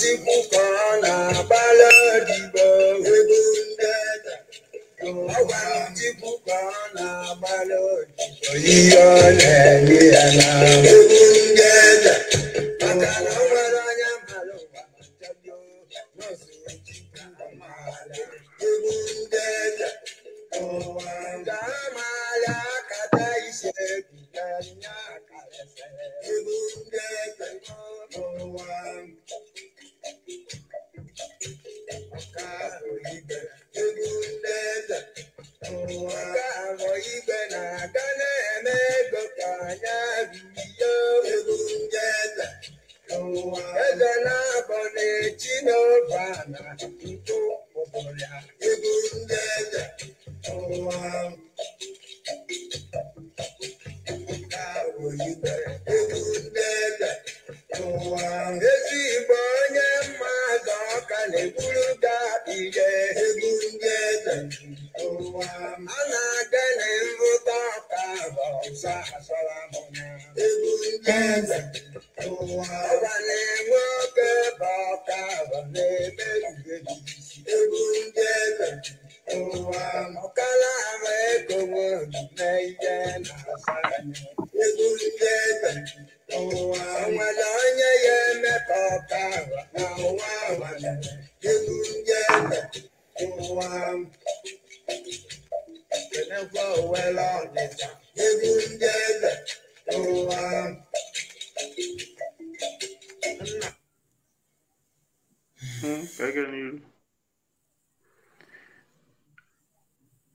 Chukwu na agbala odibo egwu ndeda ọgwara na agbala odibo ihe ọ na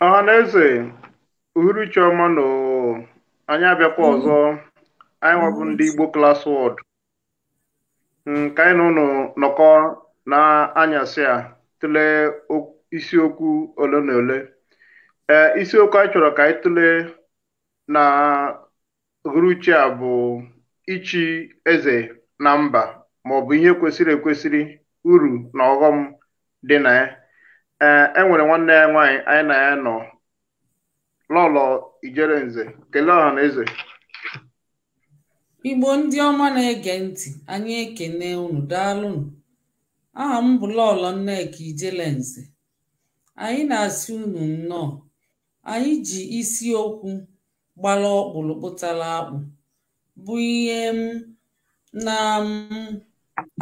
ọhaneze hmm, ah, uhuruchi ọma na anyị abịakwa ọzọ hmm. anyị nwabụ ndị Igbo class wọd nke anyị na ụnụ nọkọ na anyasị a tụlee isiokwu ole na ole eh, isiokwu anyị chọrọ ka anyị tụlee na uhuruchi a bụ ichi eze na mba maọbụ ihe kwesịrị ekwesịrị uru na ọghọm dị na ya enwere e nwere nwanne ya nwaanyị anyị na ya nọ lọlọ ijere nze kelee ọha na eze igbo ndị ọma na-ege ntị anyị ekene unu daalụnụ aha m bụ lọlọ nneka nze, anyị na-asị unu nnọọ anyị ji isi okwu. gbara ọkpụrụ kpụtara akpụ bụ ihe m na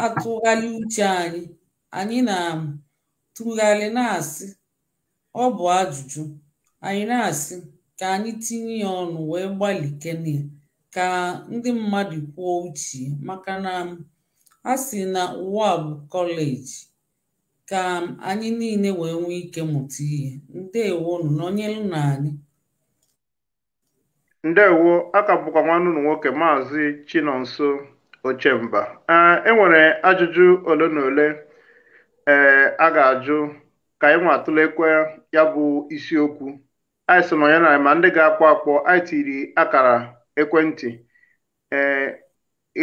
atụgharị uche anyị anyị na tụgharị na-asị ọ bụ ajụjụ anyị na-asị ka anyị tinye ya ọnụ wee gbalị gbalịkene ka ndị mmadụ kwuo uche maka na a sị na ụwa kọleji ka anyị niile wee nwee ike mụta ihe ndewonụ nọnyelụ na anyị ndewo aka bụkwa nwanne ụmụ nwoke maazị chinonso ochemba eh, e nwere ajụjụ ole na ole ee eh, a ga-ajụ ka anyị nwa atụlekwe ya bụ isiokwu anyị so na ma ndị ga-akpọ akpọ anyị tiri akara ekwentị ee eh,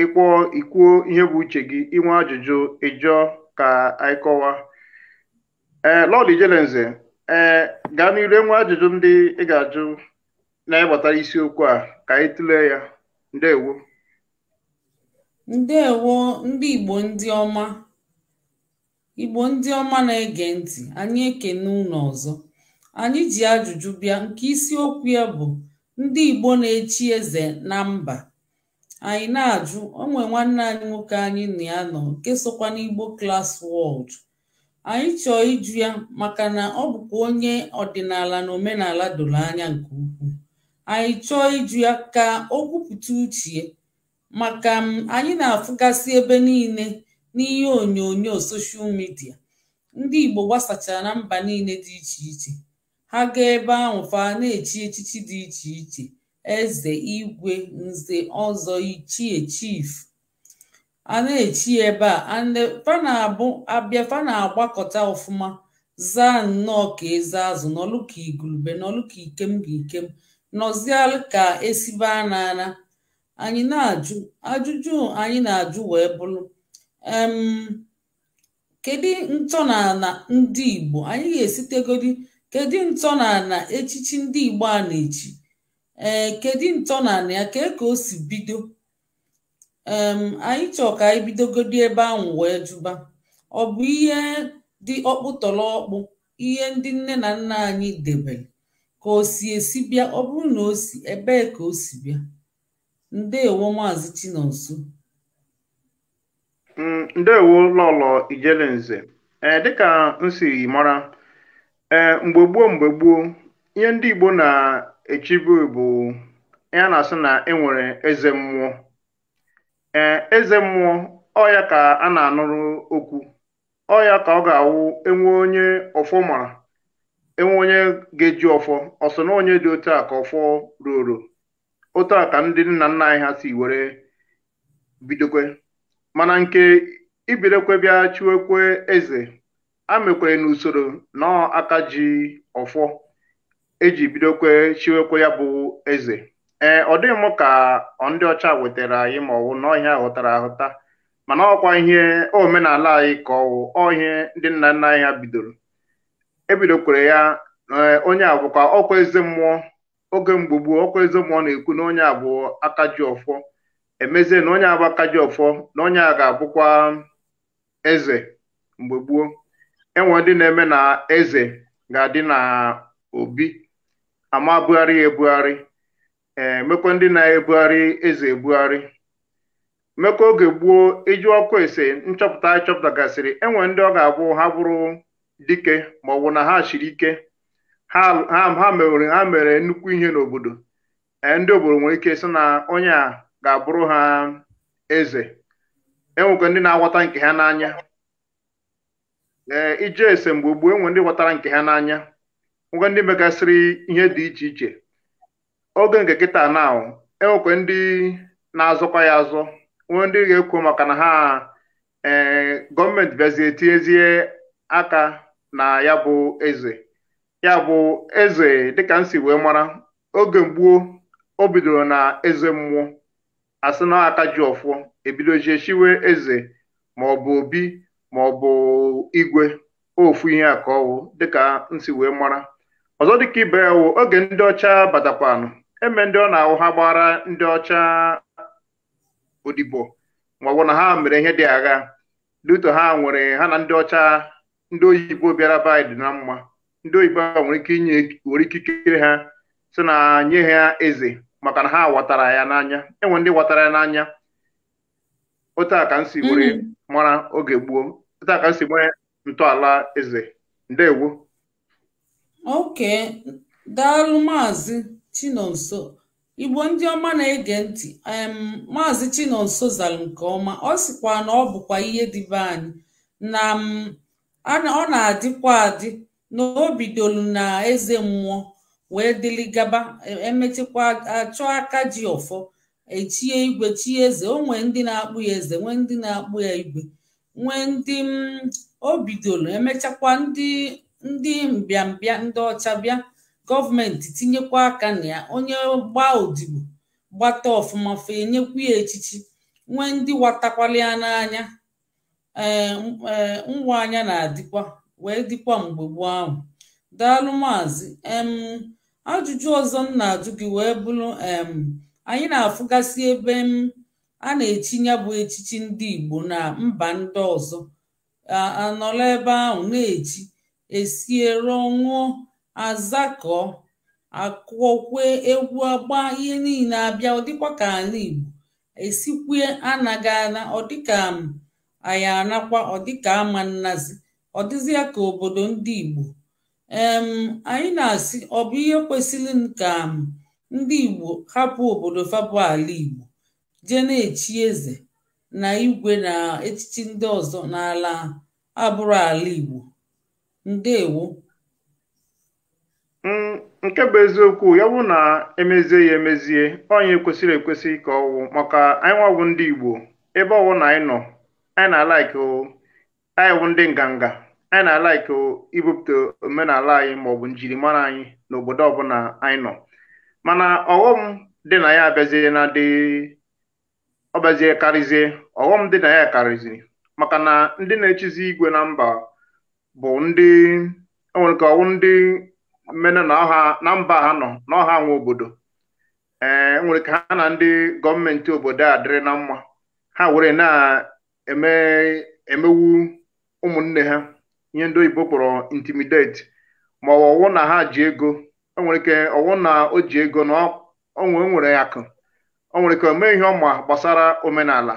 ịkpọọ ikwuo ihe bụ uche gị inwe ajụjụ ịjụọ ka anyị kọwa ee lọd ee gaa n'iru enwe ajụjụ ndị ị ga-ajụ na isiokwu a ka anyị tụlee ya ndewo ndewo ndị igbo ndị ọma igbo ndị ọma na-ege ntị anyị ekene ụlọ ọzọ anyị ji ajụjụ bịa nke isiokwu ya bụ ndị igbo na-echi eze na mba anyị na-ajụ onwe nwanne anyị nwoke anyị na ya nọ nke sokwa n'igbo klas wọld anyị chọọ ịjụ ya maka na ọ bụkwa onye ọdịnala na omenala doro anya nke ukwuu anyị chọọ iju ya ka o kwupụta uche maka m anyị na-afụgasị ebe niile n'ihe onyonyo soshal midia ndị Igbo gbasachara na mba niile dị iche iche ha gaa ebe ahụ fa na-echi echichi dị iche iche eze igwe nze ọzọ ichie chief a na-echi ebe a ande na abịa agbakọta ọfụma zaa nnọọ ka eze azụ n'ọlụka ka n'ọlụka ikem ga ikem nọzialụ ka esibe n'ala anyị na-ajụ ajụjụ anyị na-ajụ wee bụrụ em kedu ntọnala ndị Igbo anyị ga-esitegodi kedu ntọnala echichi ndị Igbo a na-echi ee kedu ntọnala ya ka e ka o si bido anyị chọọ ka anyị bidogodi ebe ahụ wee jụba ọ bụ ihe dị ọkpụtọrọ ihe ndị nne na nna anyị debere ka o si esi bịa ọ bụrụ na o si ebee ka o si bịa ndewo maazị chinonso mm, ndewo lọlọ ijelenze ee dịka m mara ee mgbe gboo mgbe gboo ihe ndị igbo na-echibu bụ ya na-asị na enwere eze mmụọ ee eze mmụọ ọya ka a na-anụrụ okwu ọya ka ọ ga-awụ enwe onye ọfọ mara enwe onye ga-eji ọfọ ọsọ na onye dị otu a ka ọfọ ruoro otu a ka ndị nna nna anyị ha si were bidokwe mana nke ibidokwe bịa chiwekwe eze amekwere n'usoro na aka ji ọfọ eji bidokwe chiwekwe ya bụ eze ee ọ dịghị m ka ndị ọcha wetara anyị ma ọwụ na ọhịa ghọtara ahụta mana ọkwa ihe omenala anyị ka ọwụ ihe ndị nna nna anyị ha bidoro ebidokwere ya eh, onye ka ọkwa eze mmụọ oge mgbe gboo ọkwa eze mmụọ na-ekwu na onye abụ aka ji ọfọ emezie na onye abụ aka ji ọfọ na onye a ga-abụkwa eze mgbe gboo enwe ndị na-eme na eze ga-adị na obi ama bugharị ya ebugharị ee eh, ndị na-ebugharị eze ebugharị mmekọ oge gboo iju ọkụ ese nchọpụta chọpụtagasịrị enwe ndị ọ ga-abụ ha bụrụ dike ma ọ bụ na ha chiri ike ha mere ha mere nnukwu ihe n'obodo ndị obodo nwere ike sị na onye a ga-abụrụ ha eze enwekwa ndị na-aghọta nke ha n'anya ee ije ese mgbe gboo enwe ndị ghọtara nke ha n'anya e nwekwa ndị megasịrị ihe dị iche iche oge nke kịta na enwekwa ndị na azụkwa ya azọ e nwee ndị ga-ekwu maka na ha ee gọọmenti bịazie tinyezie aka na ya bụ eze ya bụ eze dịka m si wee mara oge gboo o bidoro na eze mmụọ asị na aka ji ọfụọ ebidojie chiwe eze bụ obi bụ igwe ofu ihe a ka ọwụ dịka m si wee mara ọzọ dịka ibe ya wụ oge ndị ọcha batakwanụ eme ndị ọ na-awụ ha gbara ndị ọcha odibo maọbụ na ha mere ihe dị agha luto ha nwere ha na ndị ọcha ndị oyibo bịara be anyị dị na mma ndị oyibo a nwere ike inye nwere ike ikere ha si na nye ha eze maka na ha watara ya n'anya enwe ndị watara ya n'anya otu a ka m si were mm-hmm. mara oge gboo otu a ka m si nwee ntọala eze ndewo oke daalụ maazị chinonso igbo ndị ọma na-ege ntị maazị chinonso zara nke ọma ọ sịkwa na ọ bụkwa ihe dịbe anyị na ọ na-adịkwa adị na obidolu na eze mmụọ wee dịlị gaba e, e achọ aka ji ọfọ echie igwe chie eze o nwee ndị na-akpụ ya eze nwee ndị na-akpụ ya igwe nwee ndị obidolu emechakwa ndị mbịambịa ndị ọcha bịa gọọmenti tinyekwa aka na ya onye gbaa odibo gbata ọfụma fe enyekwu ya echichi nwee ndị watakwala ya n'anya um eh, eh, ngwa anya na-adịkwa wee dịkwa mgbe gboo ahụ daalụ maazị um ajụjụ ọzọ m na-ajụ gị wee bụrụ em anyị na-afụgasị ebe m a na-echi bụ echichi ndị Igbo na mba ndị ọzọ anọla ebe ahụ na-echi esie rụọ ṅụọ akụọkwe egwu agba ihe niile abịa ọ dịkwa ka ala Igbo esikwue anaghị ana ọ dịka anyị anakwa ọdịka ama nnazi ọ dịzịa ka obodo ndị Igbo em anyị na-asị ọ bụ ihe kwesịrị ka ndị Igbo hapụ obodo fabụ ala Igbo jee na-echi eze na igwe na echichi ndị ọzọ n'ala abụrụ ala Igbo ndewo nke bụ eziokwu ya bụ na emezie ya emezie onye kwesịrị ekwesị ka ọwụ maka anyị nwabụ ndị Igbo ebe ọwụ na anyị nọ anyị na-alaiki anyị wụ ndị nganga anyị na-alaiki ibupụta omenala anyị maọbụ njirimara anyị n'obodo ọbụla anyị nọ mana ọghọm dị na ya abịazie na dị ọbịazie karịzie ọghọm dị na ya karịziri maka na ndị na-echizi igwe na mba bụ ndị enwere ka ọwụ ndị mmenụ na mba ha nọ n'ọha nwe obodo ee enwere ka ha na ndị gọọmenti obodo a dịrị na mma ha were na emewu ụmụnne ha ihe ndị oyibo kpọrọ intimidate ma ọwụ na ha ji ego enwere ike ọwụ na o ji ego na onwe nwere akụ o nwere ike omee ihe ọma gbasara omenala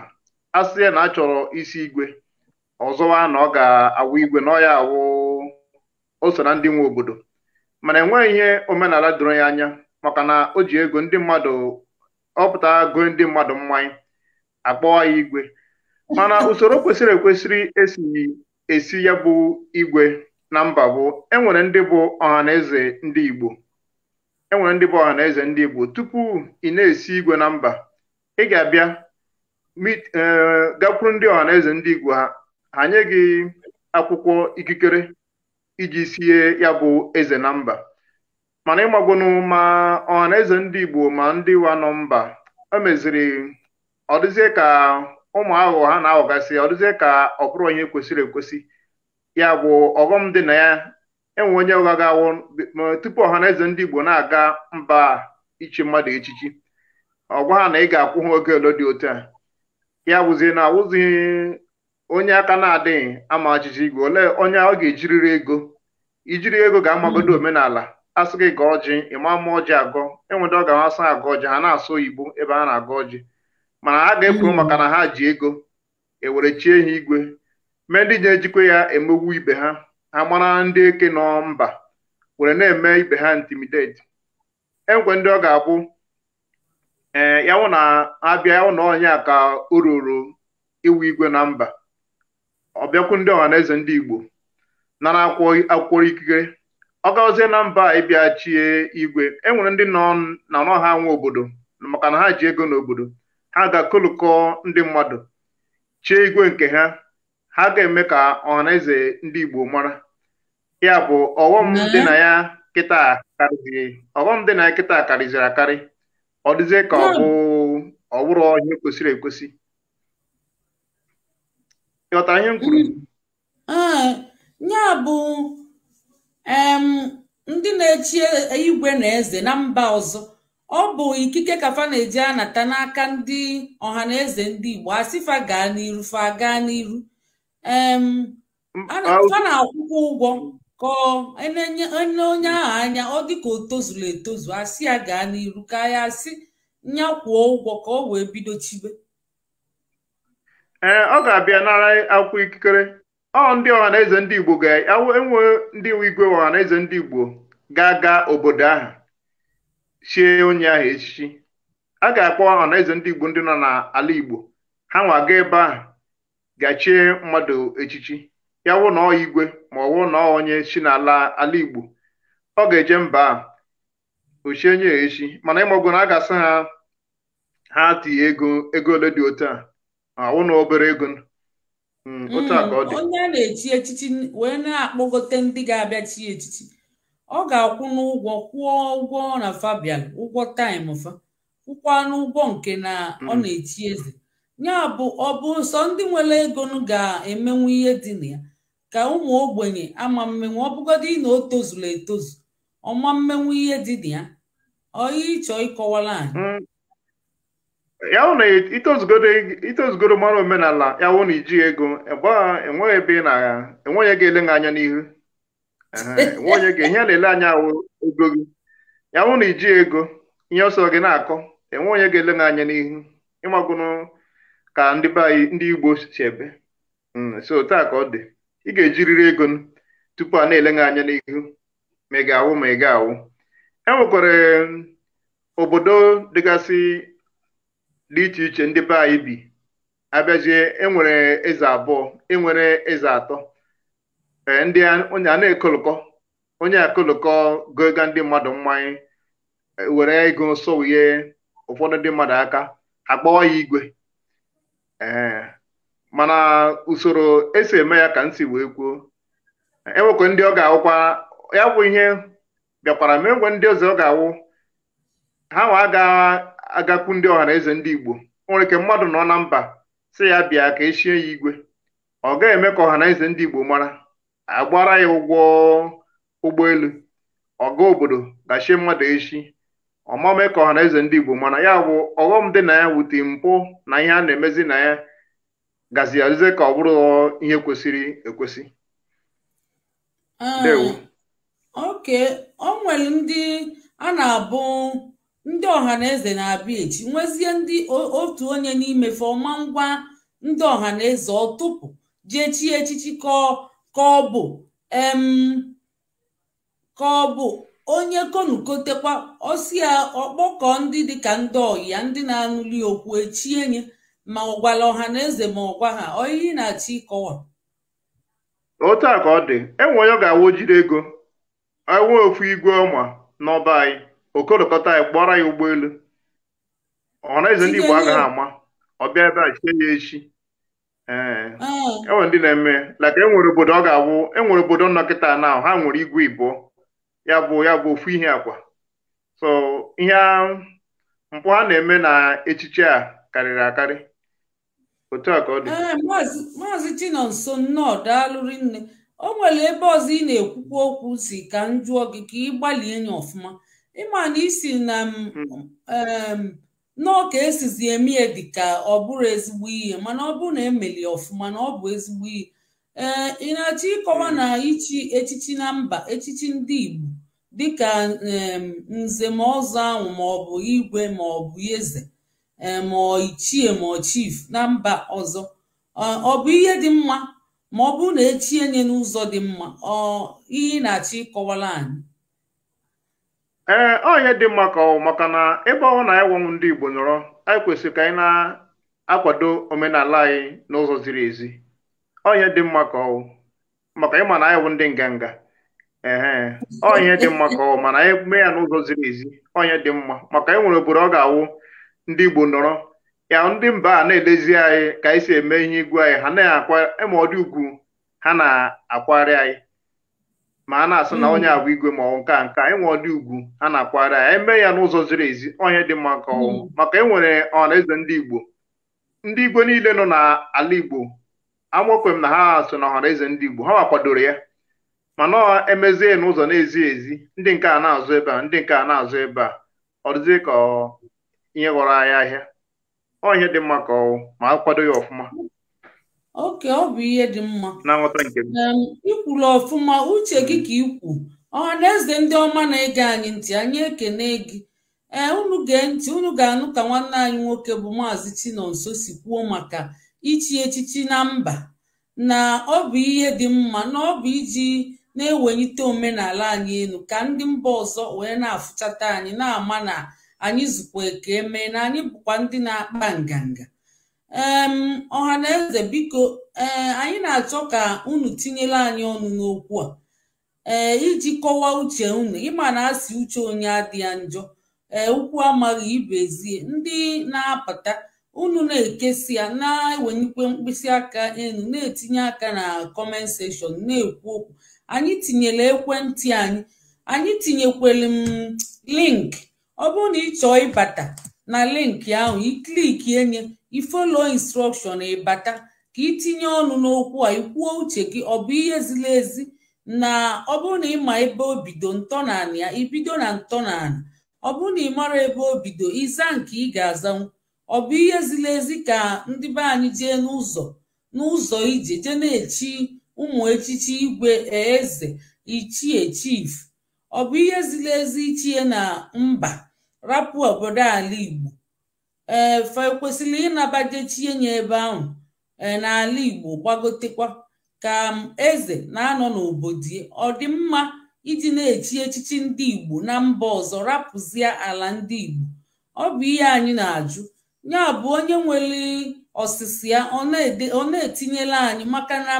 a sị na achọrọ isi igwe ọzọwa na ọ ga-awụ igwe na ọ ya awụ o so na ndị nwe obodo mana enweghị ihe omenala doro ya anya maka na o ji ego ndị mmadụ ọpụta gụọ ndị mmadụ mmanya akpọọ ya igwe mana usoro kwesịrị ekwesịrị esi ya bụ igwe na mba bụ enwere ndị bụ ọhaneze ndị Igbo enwere ndị bụ ọhaneze ndị Igbo tupu ị na-esi igwe na mba ị ga-abịa e, gakwuru ndị ọha eze ndị Igbo ha ha nye gị akwụkwọ ikikere iji sie ya bụ eze na mba mana ịmagbunu ma ọhaneze ndị Igbo ma ndị wa nọ mba ọ dịzie ka ụmụ aghụghọ ha na-aghọgasị ọ dịzie ka ọ bụrụ onye kwesịrị ekwesị ya bụ ọghọm dị na ya enwe onye ụgha ga-awụ tupu ọha na eze ndị Igbo na-aga mba ichi mmadụ echichi ọgwa ha na ị ga-akwụ ha oge ole dị otu a ya wụzie na awụzi onye aka na-adịghị ama ajụjụ igwe ole onye ọ ga-ejiriri ego ijiri ego ga-amagodo omenala asị gị ga ọjị ịma ama ọjị agọ enwere ọ ga-amasị ọjị ha na-asụ oyibo ebe a na agọ ọjị mana a ga-ekwu hmm. maka na ha ji ego ewere chie ha igwe mee ndị na-ejikwa ya emegbu ibe ha ha mara ndị eke nọ mba were na-eme ibe ha intimidate enwe ndị ọ ga-abụ ee eh, yawụ na abịa yawụ na ka o ruru iwu igwe na mba ọbịakwu ndị ọha eze ndị igbo nara akwụkwọ ikikere ọ gazie na mba ịbịa chie igwe enwere ndị nọ na ọnọ ha nwe obodo maka na ha ji ego n'obodo a ga-akụlụkọ ndị mmadụ chee igwe nke ha ha ga-eme ka na-eze ndị Igbo mara ya bụ ọghọm dị na ya kịta a ọghọm dị na ya kịta karịziri akarị ọ dịzie ka ọ bụ ọwụrụ ihe kwesịrị ekwesị ịghọtara ihe m kwuru mm. ah, ya bụ ndị na-echi igwe na eze na mba ọzọ ọ bụ ikike kafa na-eji anata n'aka ndị ọha eze ndị Igbo asịfa gaa n'iru fa gaa n'iru fa na-akwụkwọ ụgwọ ka enye onye ahụ anya ọ dịka o tozuru etozu asị ya gaa n'iru ka ya asị nyakwuo ụgwọ ka ọ wee bido chibe ee ọ ga-abịa nara akwụkwọ ikikere ọ ndị eze ndị Igbo ga-enwe ndị igwe eze ndị Igbo ga-aga obodo ahụ chie onye ahụ echichi a ga-akpọ ọnaeze ndị Igbo ndị nọ n'ala Igbo ha nwa ga ebe ahụ gachie mmadụ echichi ya wụ na ọ igwe ma ọwụ wụ na ọ onye chi n'ala ala Igbo ọ ga-eje mba ochie nye echi mana ịmọgụ na a ga-asị ha ha tinye ego ego ole dị otu a wụ na obere ego hmm, hmm, ọ dị onye a na-echi echichi wee na-akpọgote ndị ga-abịa chi echichi ọ ga-akwụ n'ụgwọ kwụọ ụgwọ na Fabian ụgwọ taịm fa kwụkwanụ n'ụgwọ nke na ọ hmm. na-echi eze ya bụ ọ bụ sọ ndị nwere ego ga-emenwu ihe dị na ya ka ụmụ ogbenye ama mmenwu ọ bụgodị na o tozuru etozu ọma mmenwu ihe dị na ya oyi ịchọ ịkọwala anyị hmm. ya wụ na itozugoro mara omenala ya wụ na iji ego e enweghị ebe ị na-enweghị ego ele anya n'ihu nwaonye gị ihe na-ele anya ego gị ya wụ na iji ego ihe ọsọ gị na-akọ enwe onye ga-ele gị anya n'ihu ịmagụnụ ka ndị be ndị Igbo si ebe hmm, so taa ka ọ dị ị ga-ejiriri ego tupu a na-ele gị anya n'ihu ma ị ga-awụ ma ị ga-awụ e nwekwara hmm, obodo dịgasị dị iche iche ndị be anyị bi abịazie enwere eze abụọ enwere eze atọ ndị a na-ekolokọ onye akolokọ goga ndị mmadụ mmanya e, were ego sowuye ụfọdụ ndị mmadụ aka akpọwa ya igwe ee mana usoro esi eme ya ka nsi wee kwuo enwekwa e ndị ọ ga-awụkwa ya bụ ihe bịakwara ma enwe ndị ọzọ ọ ga-awụ ha nwa aga-agakwu ndị ọha eze ndị Igbo nwere ike mmadụ nọ na mba si ya bịa ka echie ya igwe ọ ga-eme ka na eze ndị Igbo mara agbara ya ụgwọ ụgbọelu ọga obodo dachie mmadụ echi ọmame ka ọha na eze ndị Igbo mana ya bụ ọghọm dị na ya wute mpụ na ihe a na-emezi na ya gazi azize ka ọ bụrụ ihe kwesịrị ekwesị ah, oke o nwere ndị a na-abụ ndị ọha na eze na-abịa echi nwezie ndị otu onye n'imefe ọma ngwa ndị ọha na eze ọtụpụ jechie echichi kọọ ka ọ bụ ka ọ bụ onye konukotekwa ọsi ya ọkpọkọ ndị dịka ndị ọyịa ndị na-anụli okwu echie nye ma ọ gwala ọha na eze ma ọ gwa ha oyiyi na-achị ịkọwa otu a ka ọ dị enwe onye ga-awụ ego ewe ofu igwe ọma n'ọba anyị okolokọta anyị kpọrọ ya ụgbọelu ọha na eze ndị Igbo agaghị ama ọ bịa ebe a chie ya echi enwere eh. ah. e ndị na-eme laka enwere obodo ọ ga abụ enwere obodo nnọkịta na ha nwere igwe ibo ya bụ ya bụ ofu ihe akwa so ihe mpụ ha na-eme na echiche a karịrị akarị otu a ka ọ dị eh, maazị Chinonso nnọọ daalụrị nne o nwere ebe ọzọ ị na-ekwukwa okwu si ka m gị ka ị gbalie nya ọfụma ịma na isi na hmm. nnọọ ka esizi eme dị ka ọ bụrụ ezigbo ihe mana ọ bụrụ na emeli ọfụma na ọ bụ ezigbo ihe ee ị na-achọ ịkọwa na ichi echichi na mba echichi ndị Igbo dịka ka nzem ọzọ ahụ ma ọ bụ igwe ma ọ bụ eze ma ọ ichie ma ọ na mba ọzọ ọ bụ ihe dị mma ma ọ bụrụ na echie nye n'ụzọ dị mma ọ ihe ị na-achọ ịkọwara anyị ee eh, ọ ihe dị mma ka ọ maka na ebe ọ na ịnwanwụ ndị Igbo nọrọ anyị kwesịrị ka anyị na-akwado omenala anyị n'ụzọ ziri ezi ọ ihe dị mma ka ọ maka ịma na anyị wụ ndị nganga ee ọ ihe dị mma ka ọ mana anyị mee ya n'ụzọ ziri ezi ọ ihe dị mma maka anyị nwere obodo ọ ga-awụ ndị Igbo nọrọ ya ndị mba a na-elezi anyị ka anyị si eme ihe igwe anyị ha na-akwa ịma ugwu ha na-akwagharị anyị ma a na-asị na onye agwa igwe ma ọ nke a nke enwe ọdị ugwu a na-akwara ya eme ya n'ụzọ ziri ezi onye dị mma ka ọnwụ mm. maka enwere ọharaeze ndị igbo ndị igwe niile nọ n'ala igbo amokwem m na ha so na ọhanaeze ndị igbo ha kwadoro ya mana emezie n'ụzọ na-ezi ezi ndị nke a na-azụ ebe a ndị nke a na-azụ ebe a ọ ka ihe ghọrọ anya ahịa ihe dị mma ka ọnwụ ma a kwado ya ọfụma oke ọ bụ ihe dị mma ikwula ọfụma uche gị ka ikwu ọha na eze ndị ọma na-ege anyị ntị anyị ekene gị ee unu gee ntị unu ga-anụ ka nwanne anyị nwoke bụ maazị Chinonso si kwuo maka ichi echichi na mba na ọ bụ ihe dị mma na ọ bụ iji na-ewelite omenala anyị elu ka ndị mba ọzọ wee na-afụchata anyị na-ama na anyị zukwa eke mee na anyị bụkwa ndị na-akpa nganga ọha na eze biko ee eh, anyị na-achọ ka unu tinyela anyị ọnụ n'okwu a ee eh, iji kọwaa uche unu ịma na asị uche onye adịghị njọ ee eh, ukwu amaghị ibezie ndị na-apụta unu na-ekesi ya na-ewenyekwe mkpịsị aka enu na-etinye aka na kọment na-ekwu okwu anyị tinyere ekwentị anyị anyị tinyekwere m link ọ bụrụ na ị chọọ ịbata na linki ahụ ikliki enye ifolo instrọkshọn ịbata ka itinye ọnụ n'okwu a ikwuo uche gị ọ bụ ihe ziri ezi na ọ bụrụ na ịma ebe obido bido ya ibido na ntọnala ọ bụrụ na ị mara ebe obido ịza nke ị ga-azanwu ọ bụ ihe ziri ezi ka ndị be anyị jee n'ụzọ n'ụzọ ije jee na-echi ụmụ echichi igwe eze ichie chief ọ bụ ihe ziri ezi ichie na mba rapụ obodo ala Igbo ee fa kwesịrị ịnabajechie nye ebe ahụ e, n'ala Igbo gbagotekwa ka eze na-anọ n'obodo ọ dị mma iji na-echi echichi ndị Igbo na mba ọzọ rapụzie ala ndị Igbo ọ bụ ihe anyị na-ajụ ya bụ onye nwere ọsịsị ya ọ na-etinyela anyị maka na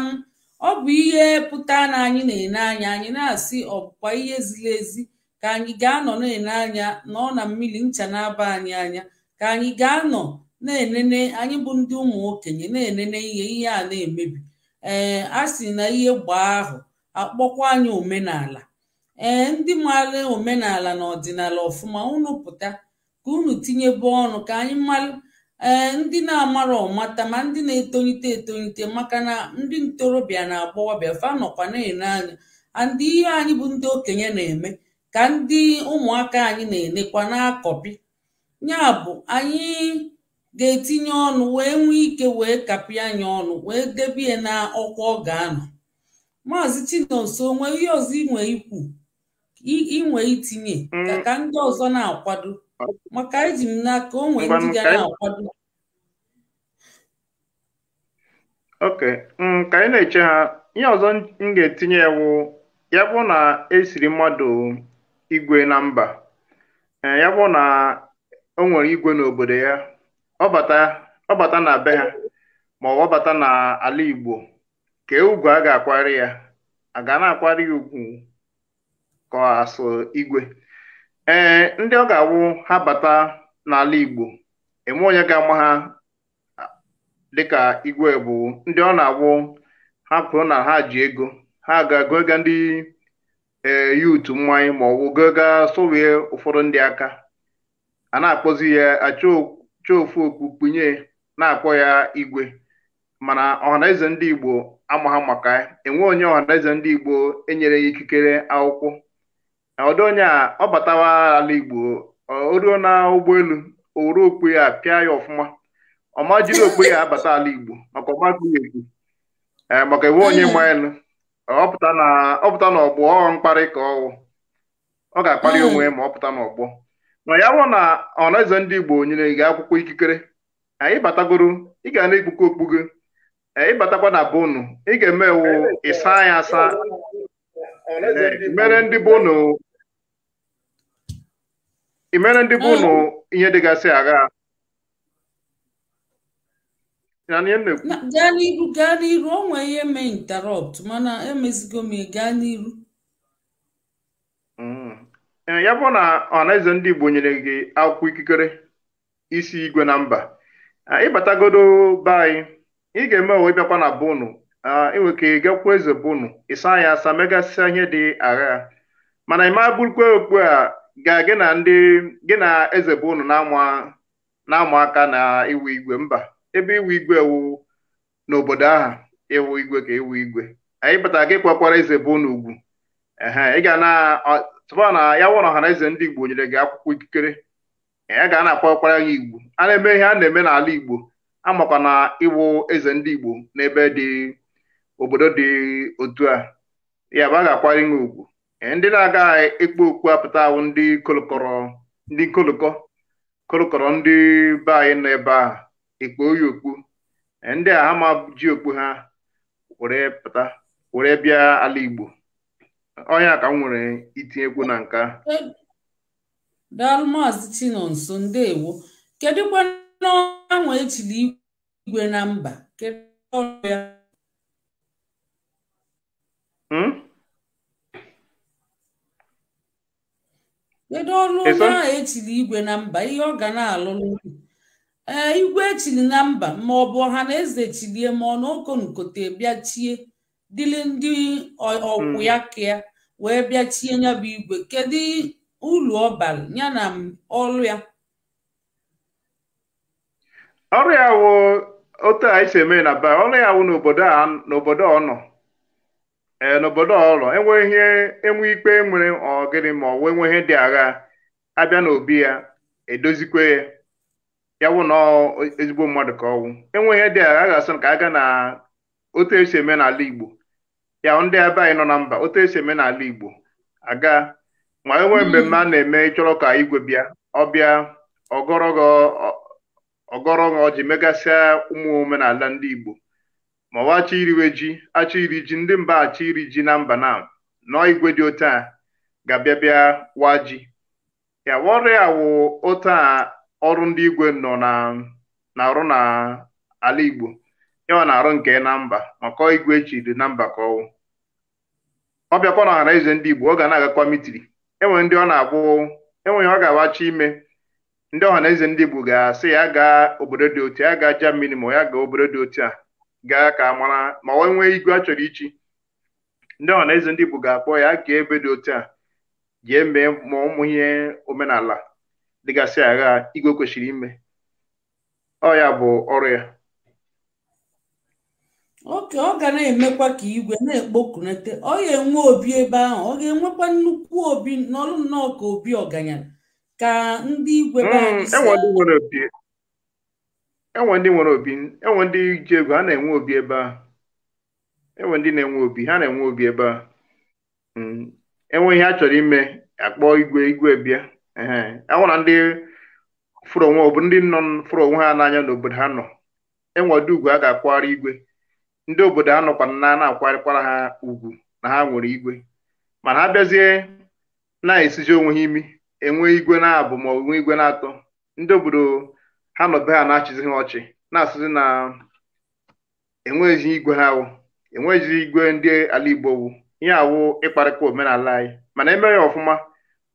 ọ bụ ihe pụta na anyị na-ene anya anyị na-asị ọbụkwa ihe ziri ezi ka anyị ga-anọ na-ene anya nọ na mmiri ncha na-aba anyị anya ka anyị ga-anọ na-enene anyị bụ ndị ụmụ okenye na-enene ihe ihe a na-emebi ee a sị na ihe gbaa ahụ akpọkwa anyị omenala ee ndị maara omenala na ọdịnala ọfụma unu pụta ka unu tinyebe ọnụ ka anyị malụ ee ndị na-amara ọmata ma ndị na-etolite etolite maka na ndị ntorobịa na agbọghọbịa fa nọkwa na-ene anya andị ihe anyị bụ ndị okenye na-eme ka ndị ụmụaka anyị na-enekwa na ya bụ anyị ga-etinye ọnụ wee nwee ike wee kapị anyị ọnụ wee debie na ọkwa ọ ga-anọ maazị Chinonso onwe ihe ọzọ inwe ikwu inwe itinye mm. ka ndị ọzọ na-akwado maka eji m n'aka o ndị ga na-akwado ok ka anyị na-eche ha ihe ọzọ m ga-etinye wụ ya bụ na esiri mmadụ igwe na mba eh, ya bụ na o nwere igwe n'obodo ya ọ bata na be ha ma ọ bata n'ala Igbo ka ugwu a ga-akwari ya a ga na-akwari ya ugwu ka asụ igwe ee eh, ndị ọ ga-awụ ha bata n'ala Igbo eme onye ga-ama ha dịka igwe bụ ndị ọ na-awụ ha pụrụ na ha ji ego ha ga-agụ ego ndị ee yutu mmanya ma ọ bụ gaga sowie ụfọdụ ndị aka a na-akpọzi ya ofu okpukpunye na-akpọ ya igwe mana ọhanaeze ndị igbo ama ha maka enwe onye ọhanaeze ndị igbo enyere ya ikikere akwụkwọ ọdụ onye a ọ batawa ala igbo o ruo na ụgbọelu o okpu ya pịa ya ọfụma ọma jiri okpu ya abata ala igbo maka ọgbakọ ya ekwu e, maka enwe onye ma elu ọpụta na ọpụta na ọgbọ ọ mkparị ka ọwụ ọ ga-akparị onwe ma ọ pụta n'ọgbọ na ya bụ na ọnụeze ndị Igbo nyere gị akwụkwọ ikikere anyị batagoro ị ga na-ekpukọ okpugo anyị batakwa na bonu ị ga-eme ewu ịsa anyị asa mere imere ndị bonu hmm. ihe dịgasị agha gaa n'iru gaa n'iru o nwee ihe me interrupt mana emezigo m gaa n'iru mm. e, ya bụ na ọhanaeze ndị Igbo nyere gị akwụkwọ ikikere isi igwe na mba ịbatagodo be anyị ị ga-eme onwe ịbịakwa na bonu inwe ka ị gakwa eze bonu ịsa ya asa megasịa ihe dị agha mana ị ma bụrụkwa okpu a ga gị na ndị gị na eze bonu na ama aka na iwu igwe mba ebe iwu igwe ewuwu n'obodo aha ịwụ igwe ka ewu igwe anyị batara gị kwakwara eze bụ n'ugwu ị ga na tụba na ya wụrụ na eze ndị igbo nyere gị akwụkwọ ikikere ya ga na-akpọkwara ya igbo a na-eme ihe a na-eme n'ala igbo amakwa na ịwụ eze ndị igbo n'ebe dị obodo dị otu a ya bụ a ga-akwara inwe ugwu ndị na-aga ekpo okpu apụta ahụ ndị kolokọrọ ndị kolokọ kolokọrọ ndị be anyị nọ ebe ahụ ekpo oyi okpu ndị a ama ji okpu ha were pụta were bịa ala Igbo onye ka m nwere itinyekwu na nka daalụ maazị Chinonso ndewo kedụkwa n'ọnwa echiri igwe na mba kedu ọrụ ya hmm? kedu ọrụ onye ahụ echiri igwe na mba ihe ọ ga na-alụrụ ee eh, igwe chiri na mba ma ọ bụ ọha na eze chilie ma ọ na bịa chie dịli ndị ọkwụ hmm. ya ka wee bịa chie ya bụ igwe kedu ụlọ ọ bara ya na ọrụ ya ọrụ ya wụ otu a isi eme na ba ọrụ ya wụ n'obodo a n'obodo ọ nọ ee eh, n'obodo ọlọ enweghị ihe enwe ikpe e nwere ọgịrị ma ọ wee nwe ihe dị agha abịa n'obi ya edozikwe ya ya wụ na ezigbo mmadụ ka ọnwụ enweghị ihe dị a ga-asụ ka aga na otu esi eme n'ala Igbo ya ndị ebe anyị nọ na mba otu esi eme n'ala Igbo aga ma enwee mm-hmm. mmemme a na-eme ịchọrọ ka igwe bịa ọbịa ọgọrọgọ ji megasịa ụmụ omenala ndị Igbo ma ọwa achọ iriwe ji achọ iri ji ndị mba achọ iri ji na mba na nọọ igwe dị otu a ga-abịa bịa wa ji ya wọrịa wụ otu a ọrụ ndị igwe nọ na na-arụ na ala Igbo ọ na-arụ nke na mba maka igwe echiri na mba ka ọwụ ọ bịakwa na ọhara eze ndị Igbo ọ ga na-agakwa mitiri enwere ndị ọ na-abụ enweghị ọ ga-awachi ime ndị ọha eze ndị Igbo ga-asị ya gaa obodo dị otu ya gaa Germany ma ya gaa obodo dị otu a gaa ka mara ma ọ nwee igwe a chọrọ ichi ndị ọhanaeze ndị Igbo ga-akpọ ya gaa ebe dị otu a jee mee ma ụmụ ihe omenala dịgasị agha igwe kwesịrị ime ọ ya bụ ọrụ ya oke ọ ga na-emekwa ka igwe na-ekpokunete ọ ga-enwe obi ebe ahụ ọ ga-enwekwa nnukwu obi n'ọrụ nnọọ ka obi ọganya ka ndị igwe hmm, enwe ndị nwere obi enwe ndị ji egwu ha na-enwe obi ebe ahụ enwe ndị na-enwe obi ha na-enwe obi ebe ahụ hmm, enweghị ha chọrọ ime akpọọ igwe igwe bịa na ndị fụrụ onwe ọ bụ ndị nọ fụrụ onwe ha n'anya n'obodo ha nọ enwe ugwu a ga akwagharị igwe ndị obodo ha nọkwa na na-akwarịkwara ha ugwu na ha nwere igwe mana ha bịazie na-esiji onwe ha imi enwe igwe na-abụ ma onwe igwe na-atọ ndị obodo ha nọbe ha na-achịzi ha ọchị na-asịzi na enweghịzi igwe ha wụ enweghịzi igwe ndị ala Igbo wụ ihe awụ ịkparịkwa omenala anyị mana emeghị ọfụma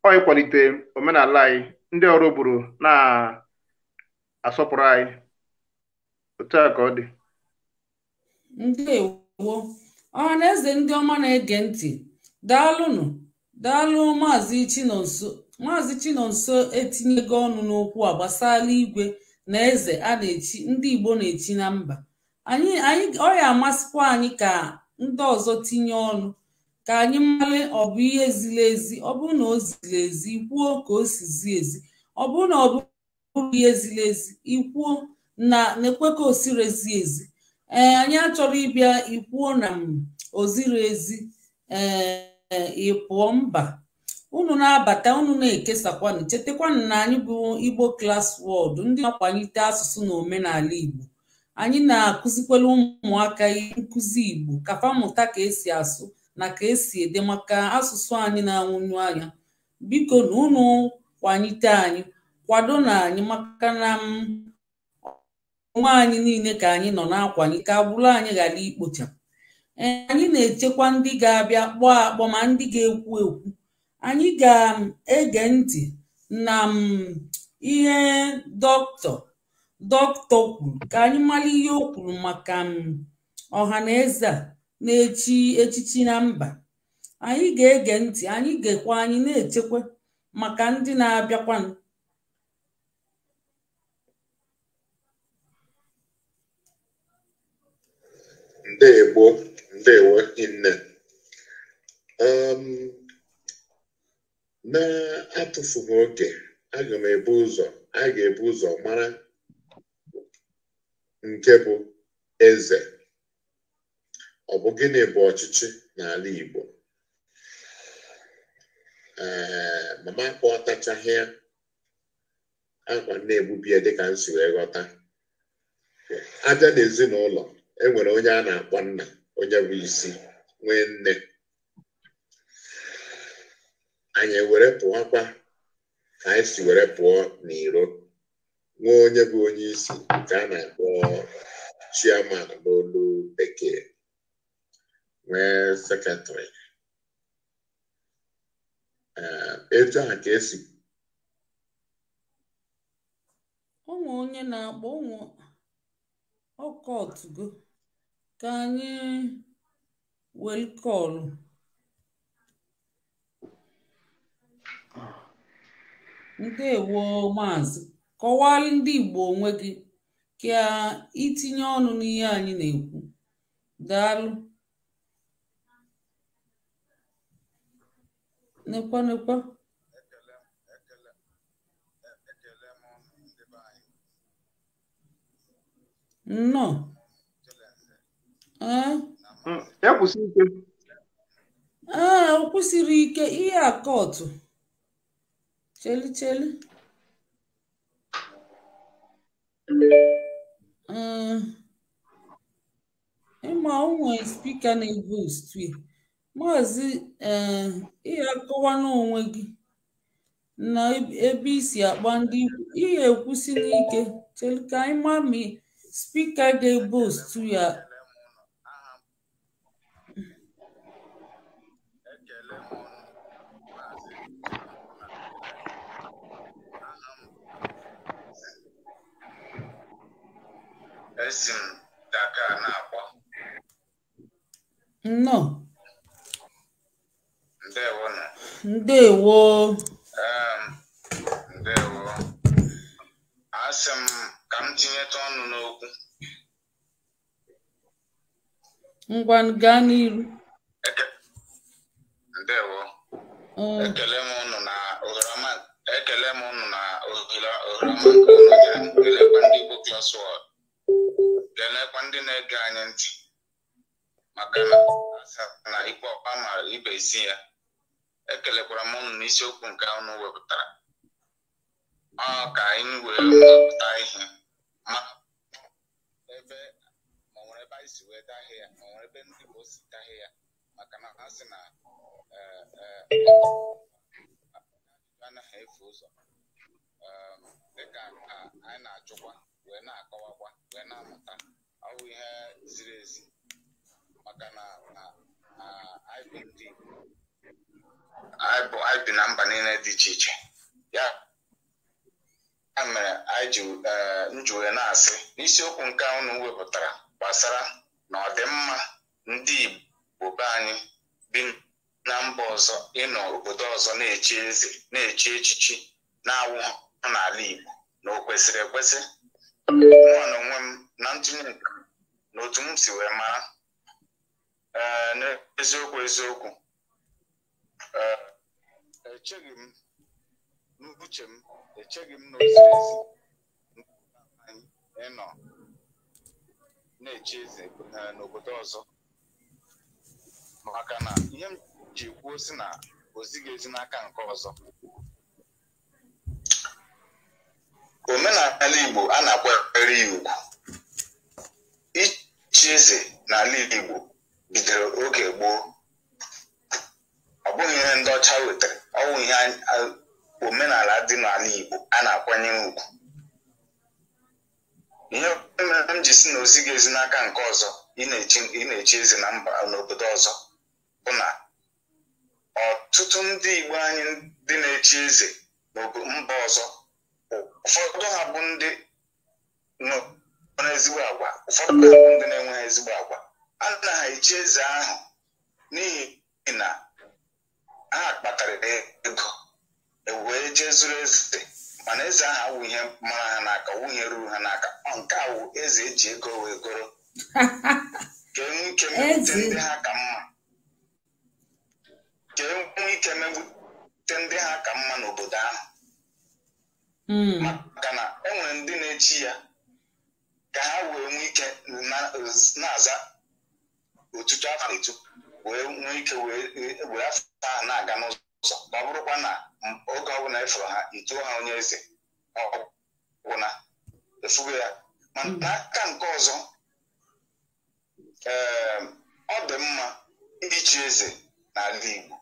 ọ kwalite omenala anyị ndị ọrụ bụrụ na-asọpụrụ anyị otu a ka ọ dị ndewo ọha na eze ndị ọma na-ege ntị daalụnụ daalụ maazị chinonso maazị chinonso etinyego ọnụ n'okwu a gbasara igwe na eze a na-echi ndị igbo na-echi na mba anyị ọ ya amasịkwa anyị ka ndị ọzọ tinye ọnụ ka anyị mara ọ bụ ihe ziri ezi ọ bụrụ na o ziri ezi ikwuo ka o si zi ezi ọ bụrụ na ọ bụrụ ihe ziri ezi ikwuo na na-ekwe ka o siri ezi ezi ee anyị achọrọ ịbịa ikwuo na o ziri ezi ee ịpụọ mba unu na-abata unu na-ekesakwanụ chetakwanụ na anyị bụ Igbo Class World ndị na-akwalite asụsụ na omenala Igbo anyị na-akụzikwere ụmụaka nkụzi Igbo kafa mmụta ka esi asụ na ka esi ede maka asụsụ anyị na-anwụnyu anya biko na unu kwanyite anyị kwado na anyị maka na mm, nwa anyị niile ka anyị nọ na ka agbụrụ anyị ghara ikpocha e, anyị na-echekwa ndị ga-abịa kpọọ akpọ ma ndị ga-ekwu ekwu anyị ga-ege ntị na mm, ihe dọkịta dọkịta kwuru ka anyị mara ihe o kwuru maka mm, ọha na eze a na-echi echichi na mba anyị ga-ege ntị anyị ga-ekwe anyị na-echekwa maka ndị na abịakwa ndewo ndewo nne ehm, na-atụfughị oke aga m ebu ụzọ a ga-ebu ụzọ mara nke bụ eze ọ bụ gịnị bụ ọchịchị n'ala Igbo ee mama ka ya akwa na-egbubi ya dịka nsi wee ghọta aja na ezinụlọ enwere onye a na-akpọ nna onye bụ isi nwee nne anyị were pụọkwa ka anyị si were pụọ n'iro nwee onye bụ onye isi nke a na-akpọ n'olu bekee nwee sekretrị eh, etu a ka esi ụmụ onye na-akpọ ụmụ ọkọtụgo ka anyị welkọlụ ndewo maazị kọwaa ndị Igbo onwe gị ka itinye ọnụ n'ihe anyị na-ekwu daalụ nekwa nekwa nnọọ ee o kwụsịrị ike ihe a kọtụ cheli cheli ee ịma onwe spika na-ebu stu Maazị um eh, Ihe Akọwana onwe gị na ebe isi akpa ndị Ihe ekwusila ike "Txeka-ima-mi Speaker dey ya esi ndewo na ndewo ndewo asị m ka m tinyeta ọnụ n'okwu ngwa gaa n'iru ndewo mm. ekele m ụnụ na ohere ekele m ụnụ na ohere ohere ndị Igbo Class World kelekwa ndị na-ege anyị ntị maka na ikpe ọkpa mara ibe isi ya ekelekwara m ụnụ n'isiokwu nke ụnụ wepụtara ọ ka anyị wee wepụta ihe ma ebe ma nwere ebe anyị si wee dahie ya ma nwere ebe ndị bụ si dahie ya maka na ha si na e, e, anaghị efu ụzọ dịka anyị na-achụkwa wee na-akọwakwa wee na-amụta ọwụ ihe ziri ezi maka na ha bụ ndị anyị bi na mba niile dị iche iche ya mere anyị ji na-asị n'isiokwu nke unu wepụtara gbasara na ọdịmma ndị Igbo be anyị bi na mba ọzọ ịnọ obodo ọzọ na eche eze na eche echichi na-awụ n'ala Igbo na o kwesịrị ekwesị mụọ onwe m na ntụnye na otu m si wee mara uh, eziokwu eziokwu Eh, echeghị m n'uche m echeghị m na ezi ịnọ na-eche eze eh, n'obodo ọzọ maka na ihe m ji kwuo si na ezi n'aka nke ọzọ omenala Igbo a na-akwanyere ya ugwu ichi eze n'ala Igbo bidoro oge gboo ọ bụghị ihe ndị ọcha wetara ọ ihe omenala dị n'ala Igbo a na akwanye ugwu ihe mere m ji si na ozi ga ezi n'aka nke ọzọ ị na eche eze na mba n'obodo ọzọ bụ na ọtụtụ ndị Igbo anyị dị na eche eze mba ọzọ ụfọdụ ha bụ ndị ụfọdụ ndị na-enweghị ezigbo agwa a na ha echi eze ahụ n'ihi na ha kpatara ego e wee jee zuru eze mana eze ahụ awụ ihe mara ha n'aka nwunye ruru ha n'aka nke awụ eze eji ego wee goro ka mma kee ike mewute ndị ha ka mma n'obodo ahụ hmm. maka na enwere ndị na-echi ya ka ha wee nwee ike na-aza otutu afọ etu wee nwee ike were afọ ha na-aga n'ụzọ ma ọ bụrụkwa na oge ọbụla ịfụrụ e ha ituo ha onye eze ọgwụna efugo ya mana hmm. n'aka nke ọzọ ee ehm, ọ dị mma ichi eze n'ala Igbo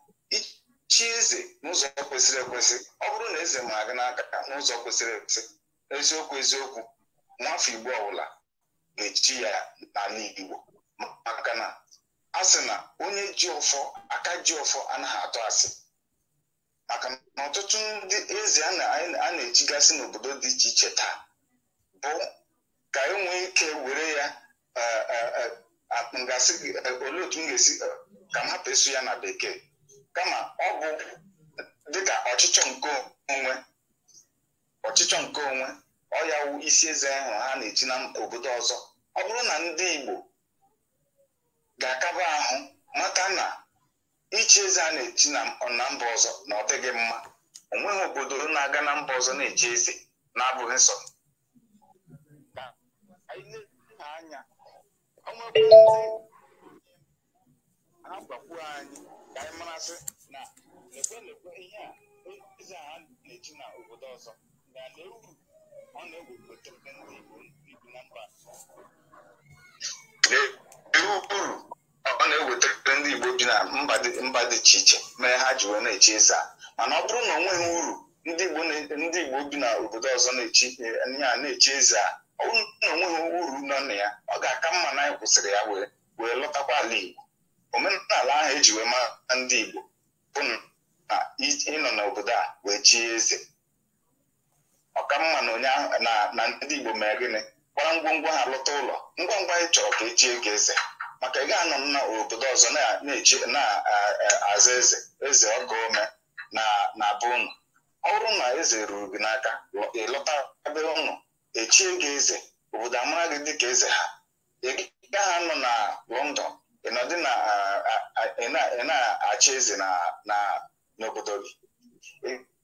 chi eze n'ụzọ kwesịrị ekwesị ọ bụrụ na eze ma aga n'aka n'ụzọ kwesịrị ekwesị eziokwu eziokwu nwafọ Igbo ọbụla ga-echi ya n'ala Igbo maka na a sị na onye ji ọfọ aka ji ọfọ anaghị atụ asị maka na ọtụtụ ndị eze a na-ejigasị n'obodo dị iche iche taa bụ ka enwee ike were ya e, e, e, ngasị olee otu m ga-esi ka m hapụ ịsụ ya na bekee kama ọ bụ dịka ọchịchọ nke onwe ọchịchọ nke onwe ọ isi eze ahụ ha na-eji na obodo ọzọ ọ bụrụ na ndị Igbo ga-akaba ahụ maka na ichi eze a na-echi na mba ọzọ na ọ dịghị mma onweghị obodo na-aga na mba ọzọ na eche eze na-abụghị nsọ anya agbakwuo anyị ka anyị marasị na lekwe lekwe ihe a eze a na-echi na obodo ọzọ ga-ale uru ọ na-ewepụta ndị Igbo na mba na mba dị iche iche mee ha ji wee na eche ịza mana ọ bụrụ na onwe ha uru ndị igbo bi na obodo ọzọ ya na-echi eze a ọ bụrụ na onwe ha uru nọ na ya ọ ga-aka mma na anyị kwụsịrị ya wee lọtakwa ala igbo omenala ahụ eji wee ndị igbo bụ na ịnọ n'obodo a wee chie eze ọka mma na ndị igbo mee gịnị gbara ngwongwo ha lọta ụlọ ngwa ngwa anyị chọrọ ka echie gị eze maka ị ga-anọ na obodo ọzọ na-aza eze eze ọka ome na be unu ọ bụrụ na eze ruru gị n'aka ịlọta be unu echie gị eze obodo amara gị dịka eze ha ị gaghị nọ na London ịnọdị ị na-achị eze n'obodo gị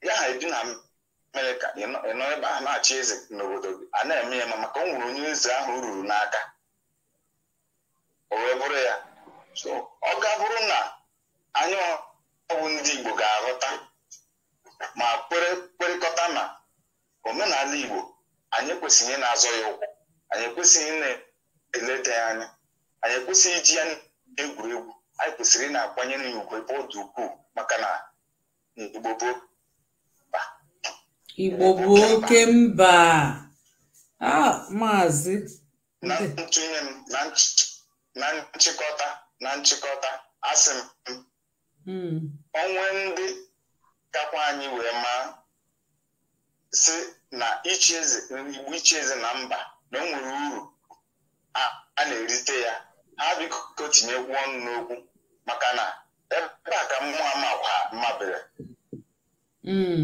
ị ha ebi na Amerịka ịnọ ebe a na-achị eze n'obodo gị a na-eme ya ma maka o nwere onye eze ahụ ruru n'aka o wee bụrụ ya so ọ ga bụrụ na anyị ọgwụ ndị Igbo ga-aghọta ma kwere na omenala Igbo anyị ekwesịghị na-azọ ya ụkwụ anyị ekwesịghị na-eleta ya anya anyị ekwesịghị iji ya egwuregwu anyị kwesịrị ị na-akwanyere ya ebe ọ dị ukwuu maka na Igbo mba Igbo bụ oke mba ah, maazị na ntụnye m na na nchịkọta na nchịkọta asị m hmm. onwe ndị kakwa anyị wee maa si na ichi eze igbo na mba na o nwere uru a na-erite ya ha biko tinyekwu ọnụ n'okwu maka na ebe a ka mmụọ makwa mabere hmm.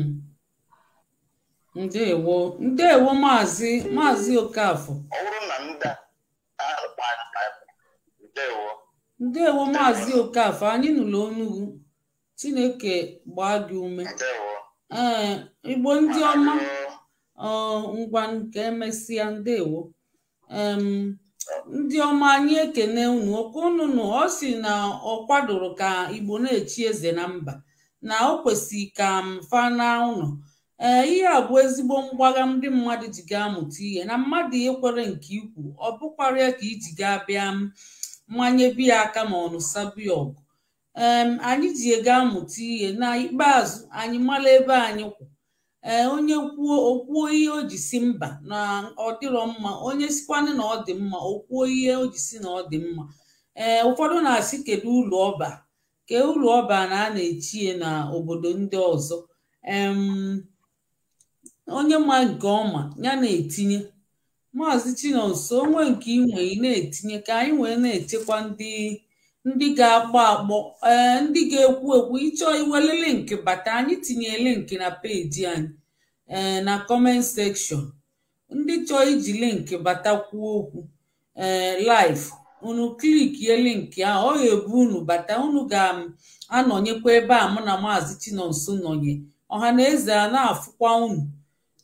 ndewo ndewo maazị maazị Okafor ọ bụrụ na ndị a Ndewo. Maazi Maazị Okafor anyị nụrụ onugwu Chineke gbaa gị ume ee Igbo ndị ọma ngwa nke emesịa ndewo ndị ọma anyị ekene unu okwu unu ọ sị na ọ kwadoro ka Igbo na-echi eze na mba na o kwesị ka m na ụlọ ee ihe a bụ ezigbo mgbagha ndị mmadụ ji ga-amụta ihe na mmadụ ekwere nke ikwu ọ bụkwarịa ka iji ga bịa mmanye biya aka ma ọ sabiọgụ ọgụ anyị ji ego amụta ihe na ikpeazụ anyị mara ebe anyị kwụ onye kwuo okwuo ihe o ji si mba na ọ dịrọ mma onye sikwanị na ọ dị mma o ihe o ji si na ọ dị mma ee ụfọdụ na-asị kedu ụlọ ọba ke ụlọ ọba na a na-echie na obodo ndị ọzọ onye ma nke ọma ya na-etinye Maazị Chinonso onwe nke inwe ị na-etinye ka anyị wee na-echekwa ndị ndị ga akpọ akpọ eh, ee ndị ga-ekwu ekwu ịchọ iwele linki bata anyị tinye linki na peji anyị ee eh, na kọment sekshọn ndị chọọ iji linki bata kwuo okwu ee eh, laif unu klikie linki ahụ ọ ga-ebu unu bata unu ga-anọnyekwa ebe a mụ na Maazị Chinonso nọnye ọha na eze a na-afụkwa unu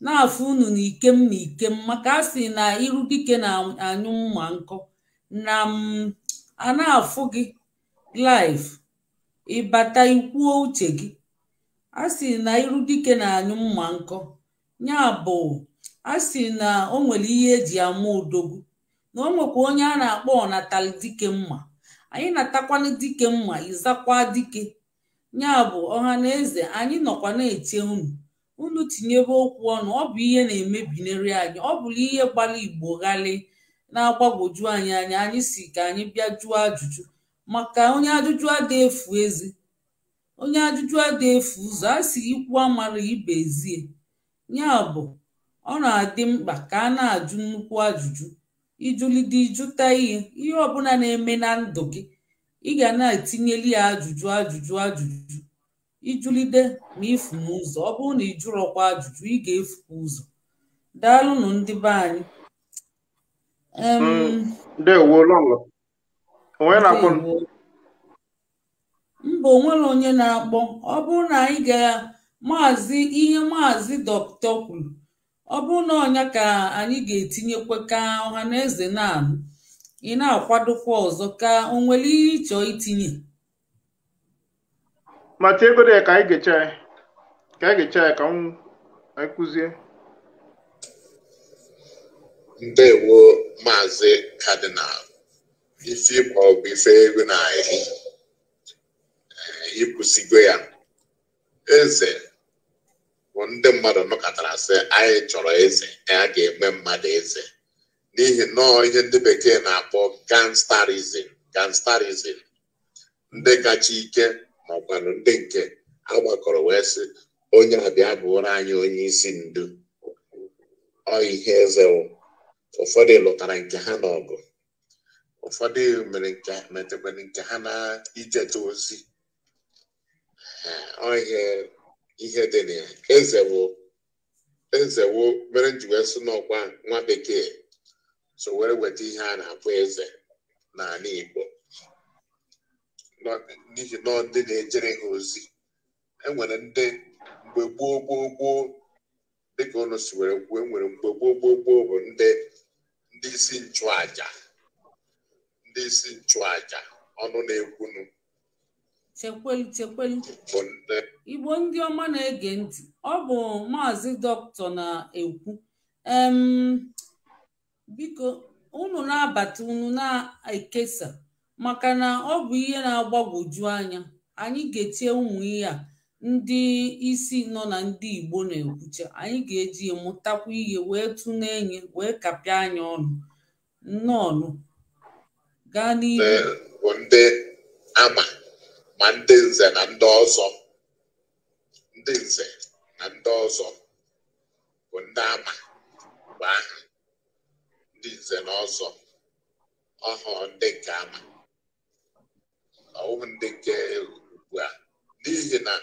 na-afụ unu na ikem na ikem maka a na iru dike na-anyụ mma nkọ na a na-afụ gị live ịbata ikwuo uche gị Asị na iru dike na-anyụ mma nkọ ya bụ a na o nwere ihe eji ama odogwu na o nwekwa onye a na-akpọ ọnatalị dike mma anyị natakwana dike mma ịzakwa dike ya bụ ọha na eze anyị nọkwa na-eche unu unu tinyebe okwu ọnụ ọ bụ ihe na-emebinere anyị ọ bụla ihe gbara igbo ghalị na-agbagwoju anyị anya anyị si ka anyị bịa jụọ ajụjụ maka onye ajụjụ ada efu eze onye ajụjụ ada efu ụzọ a si ikwu amara ibe ezie ya bụ ọ na-adị mkpa ka a na-ajụ nnukwu ajụjụ ịjụlide ịjụta ihe ihe ọbụla na-eme na ndụ gị ị ga na-etinyeli ya ajụjụ ajụjụ ajụjụ ijulide ma ifu ụzọ ọ bụrụ na ị jụrụkwa ajụjụ ị ga-efukwa ụzọ daalụnụ ndị be anyị mm, mba onwere onye na-akpọ ọ bụrụ na anyị ga maazị ihe maazị dọkịta kwuru ọ bụrụ na ọnya ka anyị ga-etinyekwa ka ọha na eze na-anụ ị na-akwadokwa ọzọ ka o nwere ihe ịchọ itinye ma tie ego ya ka anyị ga-eche ya ka anyị ga-eche ya ka anyị kụzie ndewo maazị kadinal isi ma ọ bụ ife ego na ahị ịkwụsigo ya eze bụ ndị mmadụ nọkọtara sị anyị chọrọ eze ya ga-eme mmadụ eze n'ihi nọọ ihe ndị bekee na-akpọ gangsterism gangsterism ndị kacha ike ọkwanụ ndị nke ha gbakọrọ wee sị onye abịa bụrụ anyị onye isi ndu ọ ihe eze ụfọdụ lụtara nke ha n'ọgụ ụfọdụ metekwere nke ha na ijeta ozi ihe ihe dị na ya ezewo ezewo mere nji wee sị n'ọkwa nwa bekee so were weta ihe a na-akpọ eze n'ala Igbo n'ihi na ndị na-ejere ha ozi enwere ndị mgbe gboo gboo gboo dịka ụnụ si were kwuo enwere mgbe gboo gboo gboo bụ ndị ndị isi nchụaja ndị isi nchụaja ọnụ na-ekwunu chekwelu chekwelu igbo ndị ọma na-ege ntị ọ bụ maazị dọkịta na-ekwu biko unu na-abata unu na-ekesa maka na ọ bụ ihe na-agbagwoju anya anyị ga-etie ụmụ ihe a ndị isi nọ na ndị Igbo na-ekwucha anyị ga-eji mụtakwa ihe wee tụna enyi wee kapịa anya ọnụ nnọọnụ gaa n'ihu ndị ama ma ndị nze na ndị ọzọ ndị nze na ndị ọzọ bụ ndị ama ndị ọwụ ndị nke ugbu a n'ihi na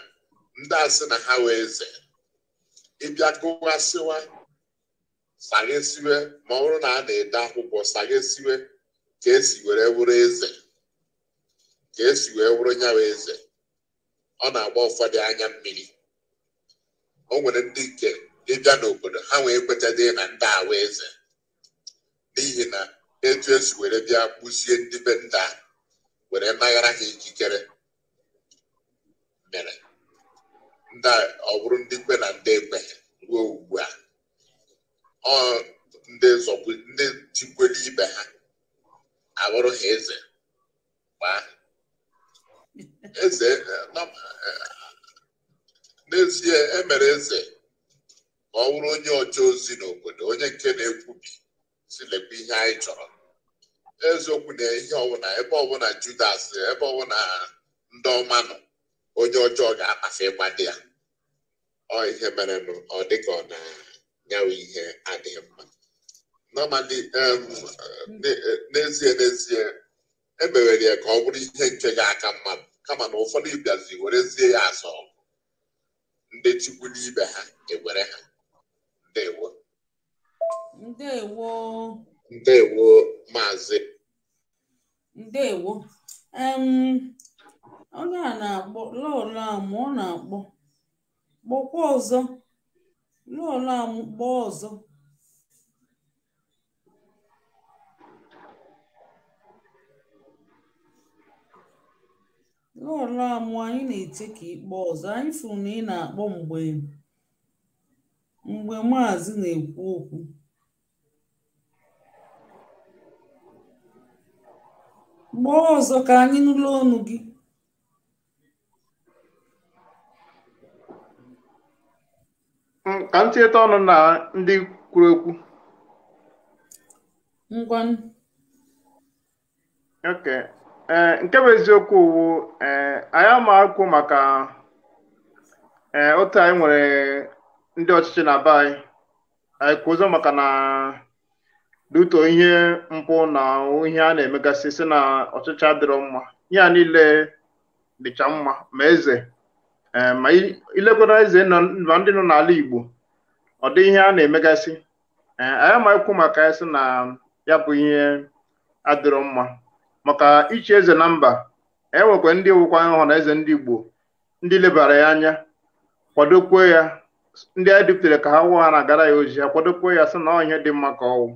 ndị asị na ha wee eze ịbịa gụwasịwa saghesiwe ma ọ bụrụ na a na-ede akwụkwọ saghesiwe ka esi were wụrụ eze ka esi wee wụrụ nyawa eze ọ na-agba ụfọdụ anya mmiri o nwere ndị nke ịbịa n'obodo ha wee kwetadị na ndị awa eze n'ihi na etu esi were bịa kpụzie ndị be ndị a were mmaghara ha ikikere mere ndị ọ bụrụ ndị kpe na ndị ekwe ruo ugbu a ọ ndị ndị ibe ha abụrụ ha eze gbaa eze n'ezie emere eze ka ọ bụrụ onye ọcha ozi n'obodo onye nke na-ekwubi si lekwa ihe anyị chọrọ eziokwu na ihe ọbụla ebe ọbụla Judas ebe ọbụla ndị ọma nọ onye ọjọọ ga-akpafe ịgbade ya ọ ihe mere ọ dị ka ọ na-nyawe ihe adịghị mma nọmali n'ezie n'ezie emewere ya ka ọ bụrụ ihe nke ga-aka mmadụ kama na ụfọdụ ịbịazi werezie ya asọ ndị chukwu n'ibe ha ewere ha ndewo ndewo ndewo maazị ndewo onye a na-akpọ lọlam ọ na-akpọ kpọkwa ọzọ lọlam kpọọ ọzọ lọlam anyị na-eche ka ịkpọ ọzọ anyị fụrụ na ị na-akpọ mgbe mgbe maazị na-ekwu okwu gbaa ọzọ ka anyị nụlọ ọnụ gị mm, ka m tinyeta ọnụ na ndị kwuru okwu ngwanụ ee eh, nke bụ eziokwu uwu eh, anyị ama akwụ maka eh, otu anyị nwere ndị ọchịchị na be anyị anyị kwuo ụzọ maka na dutuo ihe mpụ na ihe a na-emegasị si na ọchịchị adịrọ mma ihe a niile dịcha mma ma eze eh, ma ilekwara eze ma ndị nọ n'ala Igbo ọ dị ihe a na-emegasị ma eh, amaghịkwu maka ya sị na ya bụ ihe adịrọ mma maka ichi eze na mba enwekwa ndị wụkwa hụ na eze ndị Igbo ndị lebara ya anya kwadokwe ya ndị anyị duputere ka ha wụ ha na-agara ya ozi ha kwadokwe ya sị na ọ ihe dị mma ka ọwụ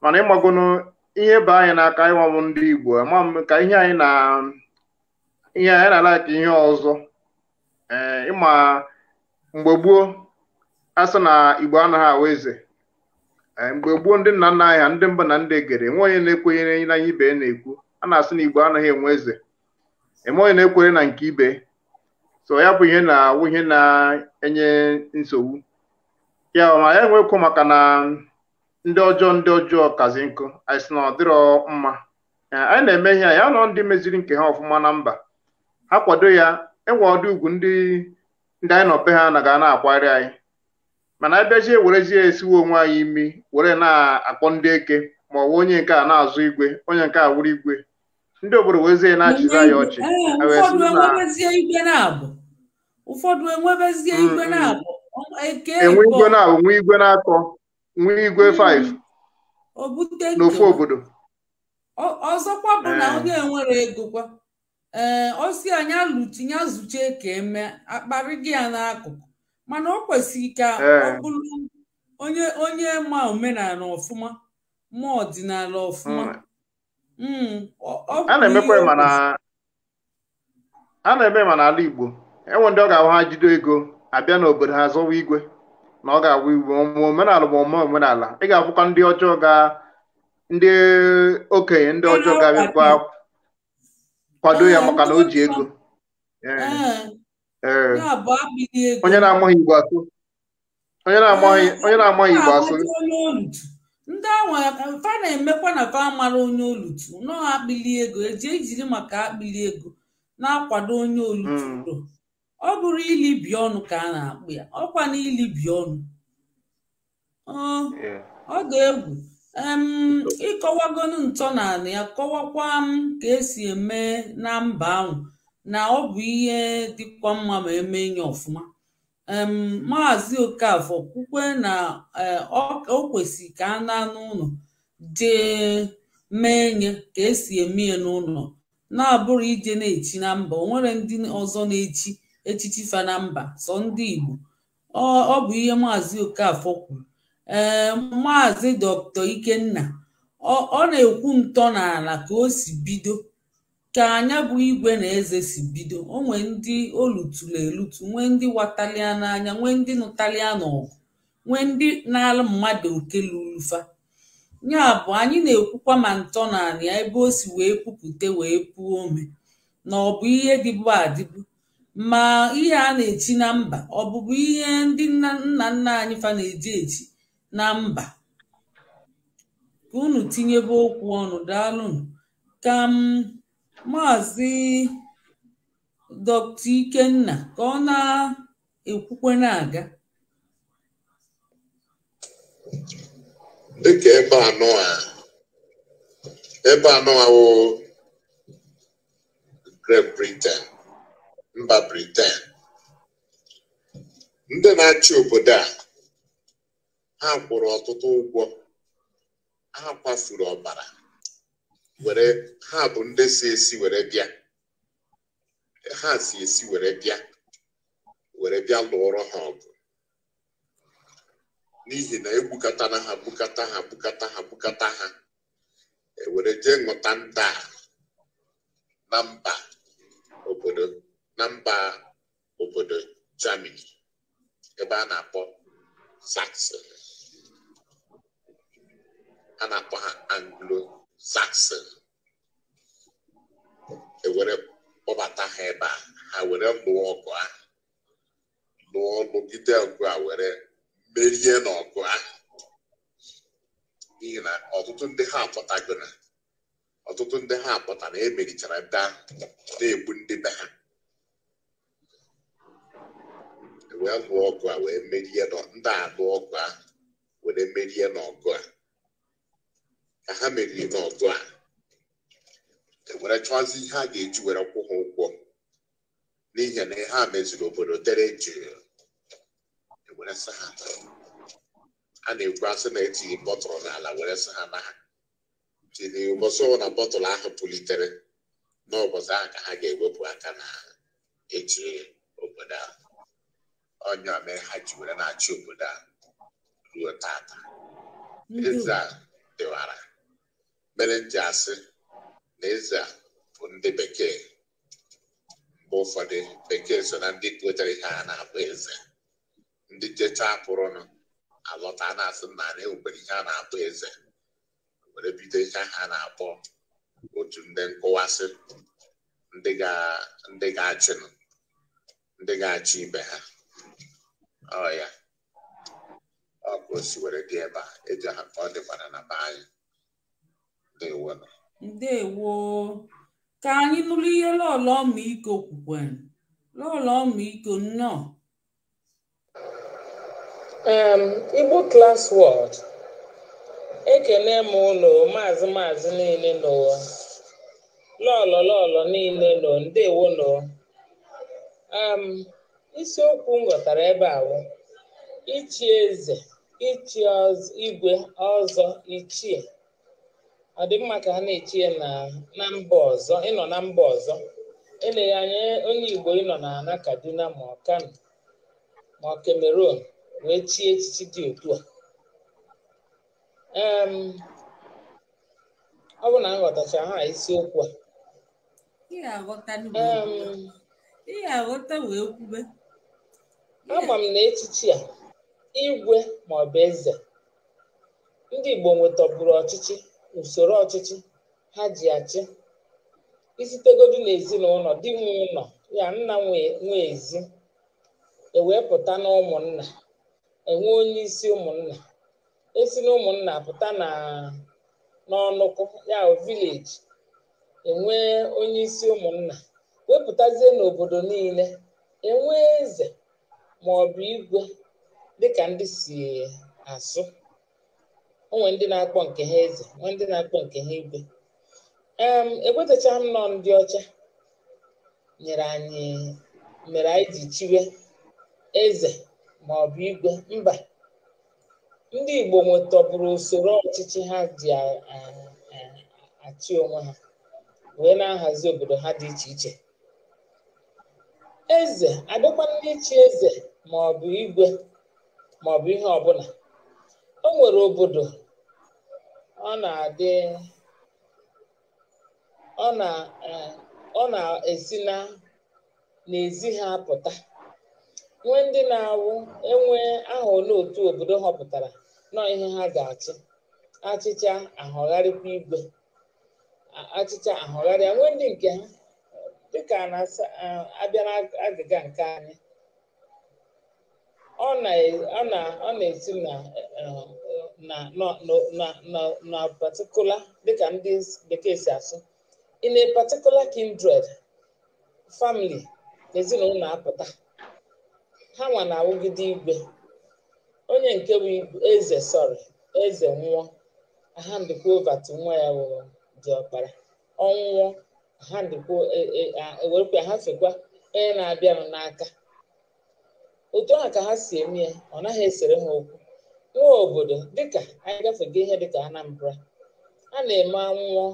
mana ịgbagonu ihe bụ anyị n'aka ịnwanwụ ndị Igbo ama m ka ihe anyị na ihe anyị na ala ka ihe ọzọ ee ịma mgbe gboo asị na Igbo anaghị awụ eze mgbe gboo ndị nna nna anyị ha ndị mba na ndị egere enwe onye na-ekwenye na ihe ibe na-ekwu a na-asị na Igbo anaghị enwe eze enwe onye na-ekwenye na nke ibe so ya bụ ihe na-awụ ihe na-enye nsogbu ya ma ya enwekwu maka na ndị ọjọọ ndị ọjọọ kazi nkụ anyị sị na ọ dịrọ mma anyị na-eme ihe ya nọ ndị meziri nke ha ọfụma na mba ha kwado ya enwe ọdụ ugwu ndị ndị anyị nọ ha na ga na-akwari anyị mana abịajie werezie esiwe onwe anyị imi were na-akpọ ndị eke ma ọ bụ onye nke a na-azụ igwe onye nke a wuru igwe ndị obodo wezie na-achịza ya ọchị ụfọdụ enwebezie igwe na-abụ nwa igwe na-akọ nwa igwe 5 n'ofu obodo ọzọkwa bụ na onye eh. nwere ego kwa ee eh, osi anya lụchi ya zuchie ka eme akparịgị ya n'akụkụ mana o kwesịrị ka eh. ọ bụrụ onye onye ma omenala ọfụma ma ọdịnala ọfụma hmm. Hmm, a na eme mana na ala Igbo enwe ndị ọ ga-ahụ ha jido ego abịa n'obodo ha zọwa igwe na ọ ga-awụ igwe ọmụma omenala bụ ọmụma omenala ị ga-abụkwa ndị ọjọọ ga ndị okenye ndị ọjọọ ga-abịakwa kwado ya maka na o ji ego onye na-amaghị igbo asụ onye na-amaghị igbo asụ ndị ahụ fa na-emekwa na fa mara onye olutu nọọ akpịli ego eji ejiri maka akpịli ego na-akwado onye olutu hmm. ọ bụrụ ilibi ọnụ ka a na-akpụ ya ọkwa na ilibi ọnụ ọ ga-egwu ịkọwagonu ntọnala ya kọwakwa m ka esi eme na mba ahụ na ọ bụ ihe dịkwa mma ma eme nye ọfụma maazị okafọ kwukwe na e, o kwesịrị ka a na-anụ ụlọ jee mee nye ka esi eme ya n'ụlọ na-abụrụ ije na-echi na mba o nwere ndị ọzọ na-echi echichi fa na mba sọ ndị Igbo ọ bụ ihe maazị Okafor kwuru ee maazị dr Ikenna ọ na-ekwu ntọ n'ala ka o si bido ka anya bụ igwe na eze si bido o nwee ndị olutulu elutu nwee ndị watalia n'anya nwee ndị nụtalia n'ọgụ nwee ndị na-alụ mmadụ oke lurufa fa bụ anyị na-ekwukwa ma ntọ n'ala ya ebe o si wee pupute wee puo ome na ọ bụ ihe dịbụ adịbu ma ihe a na-echi na mba ọ bụbu ihe ndị nna nna anyị fa na-eji echi na mba ka unu tinyebe okwu ọnụ daalụnụ ka m maazị Ikenna ka ọ na-ekwukwe na-aga dịka ebe anọ a ebe anọ a wụ mba Briten ndị na-achị obodo a ha kwụrụ ọtụtụ ụgwọ ha kwafuru ọbara were ha bụ ndị si esi were bịa ha si esi were bịa were bịa lụọrọ ha ọgụ n'ihi na na ha bukata ha bukata ha bukata ha ewere jee ṅụta nta na mba obodo na mba obodo Germany ebe a na-akpọ Saxon a na-akpọ ha Anglo-Saxon ewere kpọbata ha ebe a ha were lụọ ọgụ ahụ lụọ lụgide ọgụ a were merie n'ọgụ ahụ n'ihi na ọtụtụ ndị ha apụtago na ọtụtụ ndị ha apụta na emerichara ndị ahụ na-egbu ndị be ha wee lụọ ọgụ a wee merie ndị alụ ọgụ a were merie n'ọgụ a ka ha meriri n'ọgụ a e were chọzi ihe a ga-eji were kwụ ha ụgwọ n'ihi na ihe a meziri obodo dere jụụ e were sị ha a na-ekwu asị na etinye bọtụlụ n'ala were sị ha na ha tiri ụbọchị na bọtụlụ ahụ pụlitere n'ụbọchị ahụ ka ha ga-ewepụ aka na eji obodo ahụ onye ome ha ji were na-achị obodo a ruo tata eze a dịwara mere asị na eze a bụ ndị bekee mgbe ụfọdụ bekee so na ndị kpotara ihe a na-abụ eze ndị jecha pụrụnụ alọta na-asị na anyị ewubere ihe na-abụ eze were bido ihe ha na-akpọ otu ndị nkụwasị ndị ga-achị ibe ha ọ oh, ya ọ bụ osiwere dị ebe a eji aha ka ọ dịkwara na be anyị ndewo ndewo ka anyị nụrụ ihe lọlọ ọmịiko kwukwere lọlọ ọmịiko nnọọ igbo klas wọd ekele m ụlọ maazị maazị niile n'ụwa lọlọ lọlọ niile nọ ndewo nọ isiokwu m ghọtara ebe a wụ ichi eze ichi igwe ọzọ ichie ọ dị mma ka ha na-echi na mba ọzọ ịnọ na mba ọzọ eleghị anya onye igbo ịnọ na kaduna ma ọ ma ọ wee chie echichi dị otu a ọ bụ na m ha isiokwu a ihe aghọta wee kwube ama m na echichi a igwe ma ọ bụ eze ndị Igbo nwetọburu ọchịchị n'usoro ọchịchị ha ji achị isitegodu n'ezinụlọ di nwe ụlọ ya nna nwe ezi ewee pụta na enwe onye isi ụmụnna esi na ụmụnna pụta na n'ọnụkụ ya vileji enwee onye isi ụmụnna wepụtazie n'obodo niile enwee eze ma ọ bụ igwe dịka ndị si asụ onwe ndị na-akpọ nke ha eze nwe ndị na-akpọ nke ha igwe em m nọ ndị ọcha nyere anyị mere anyị ji chiwe eze ma ọ bụ igwe mba ndị Igbo nwetọbụrụ usoro ọchịchị ha ji achị onwe ha wee na-ahazi obodo ha dị iche iche eze adịkwa ndị chi eze maọbụ igwe maọbụ ihe ọbụla o nwere obodo ọ na-adị ọ e, na-esi na n'ezi ha pụta nwee ndị na-awụ enwe ahụ n'otu obodo họpụtara nọ ihe ha ga-achị achịcha ahọgharịkwa igwe achịcha ahọgharịa nwee ndị nke ha dịka na-abịa n'agịga nke anyị ọ e, na-esi eh, eh, na particular dịka ndị bekee si asụ in a particular kindred family na ezinụlọ apụta ha nwa na-awụgide igwe onye nke bụ eze sọrị eze nwụọ ha ndịkwa nwa ya wụrụ dị ọkpara ọnwụọ ha ndịkwa e, e, ha hafekwa onye na-abịanụ n'aka otu a ka ha si eme ya ọ naghị esere ha okwu iwe obodo dịka anyị gafego ihe dịka Anambra a na-eme anwụọ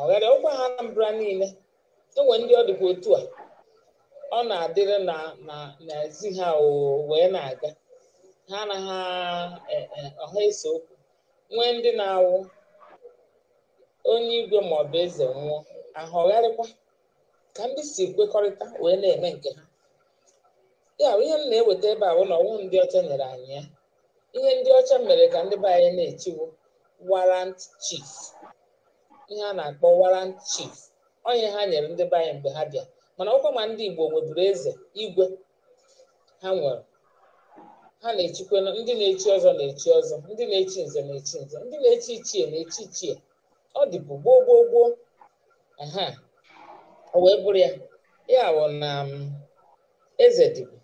ọghara ọkwa ha Anambra niile enwe ndị ọ dịkwa otu a ọ na-adịrị na n'ezi ha wee na-aga ha anaghị e, e, ọha ese okwu nwee ndị na-awụ onye igwe maọbụ eze nwụọ ahọgharịkwa ka ndị si kwekọrịta wee na-eme nke ha ya ihe m na-eweta ebe a bụ na ọnwụ ndị ọcha nyere anyị ya ihe ndị ọcha mere ka ndị be anyị na-etiwo warrant chief ihe a na-akpọ warrant chief onye ha nyere ndị be anyị mgbe ha bịa mana ọkwa ma ndị Igbo nweburu eze igwe ha nwere ha na-echikwe ndị na-echi ọzọ na-echi ọzọ ndị na-echi nze na-echi nze ndị na-echi ichie na-echi ichie ọ dịbụ gboo gboo gboo aha o wee bụrụ ya ya bụ na um, eze dịbụ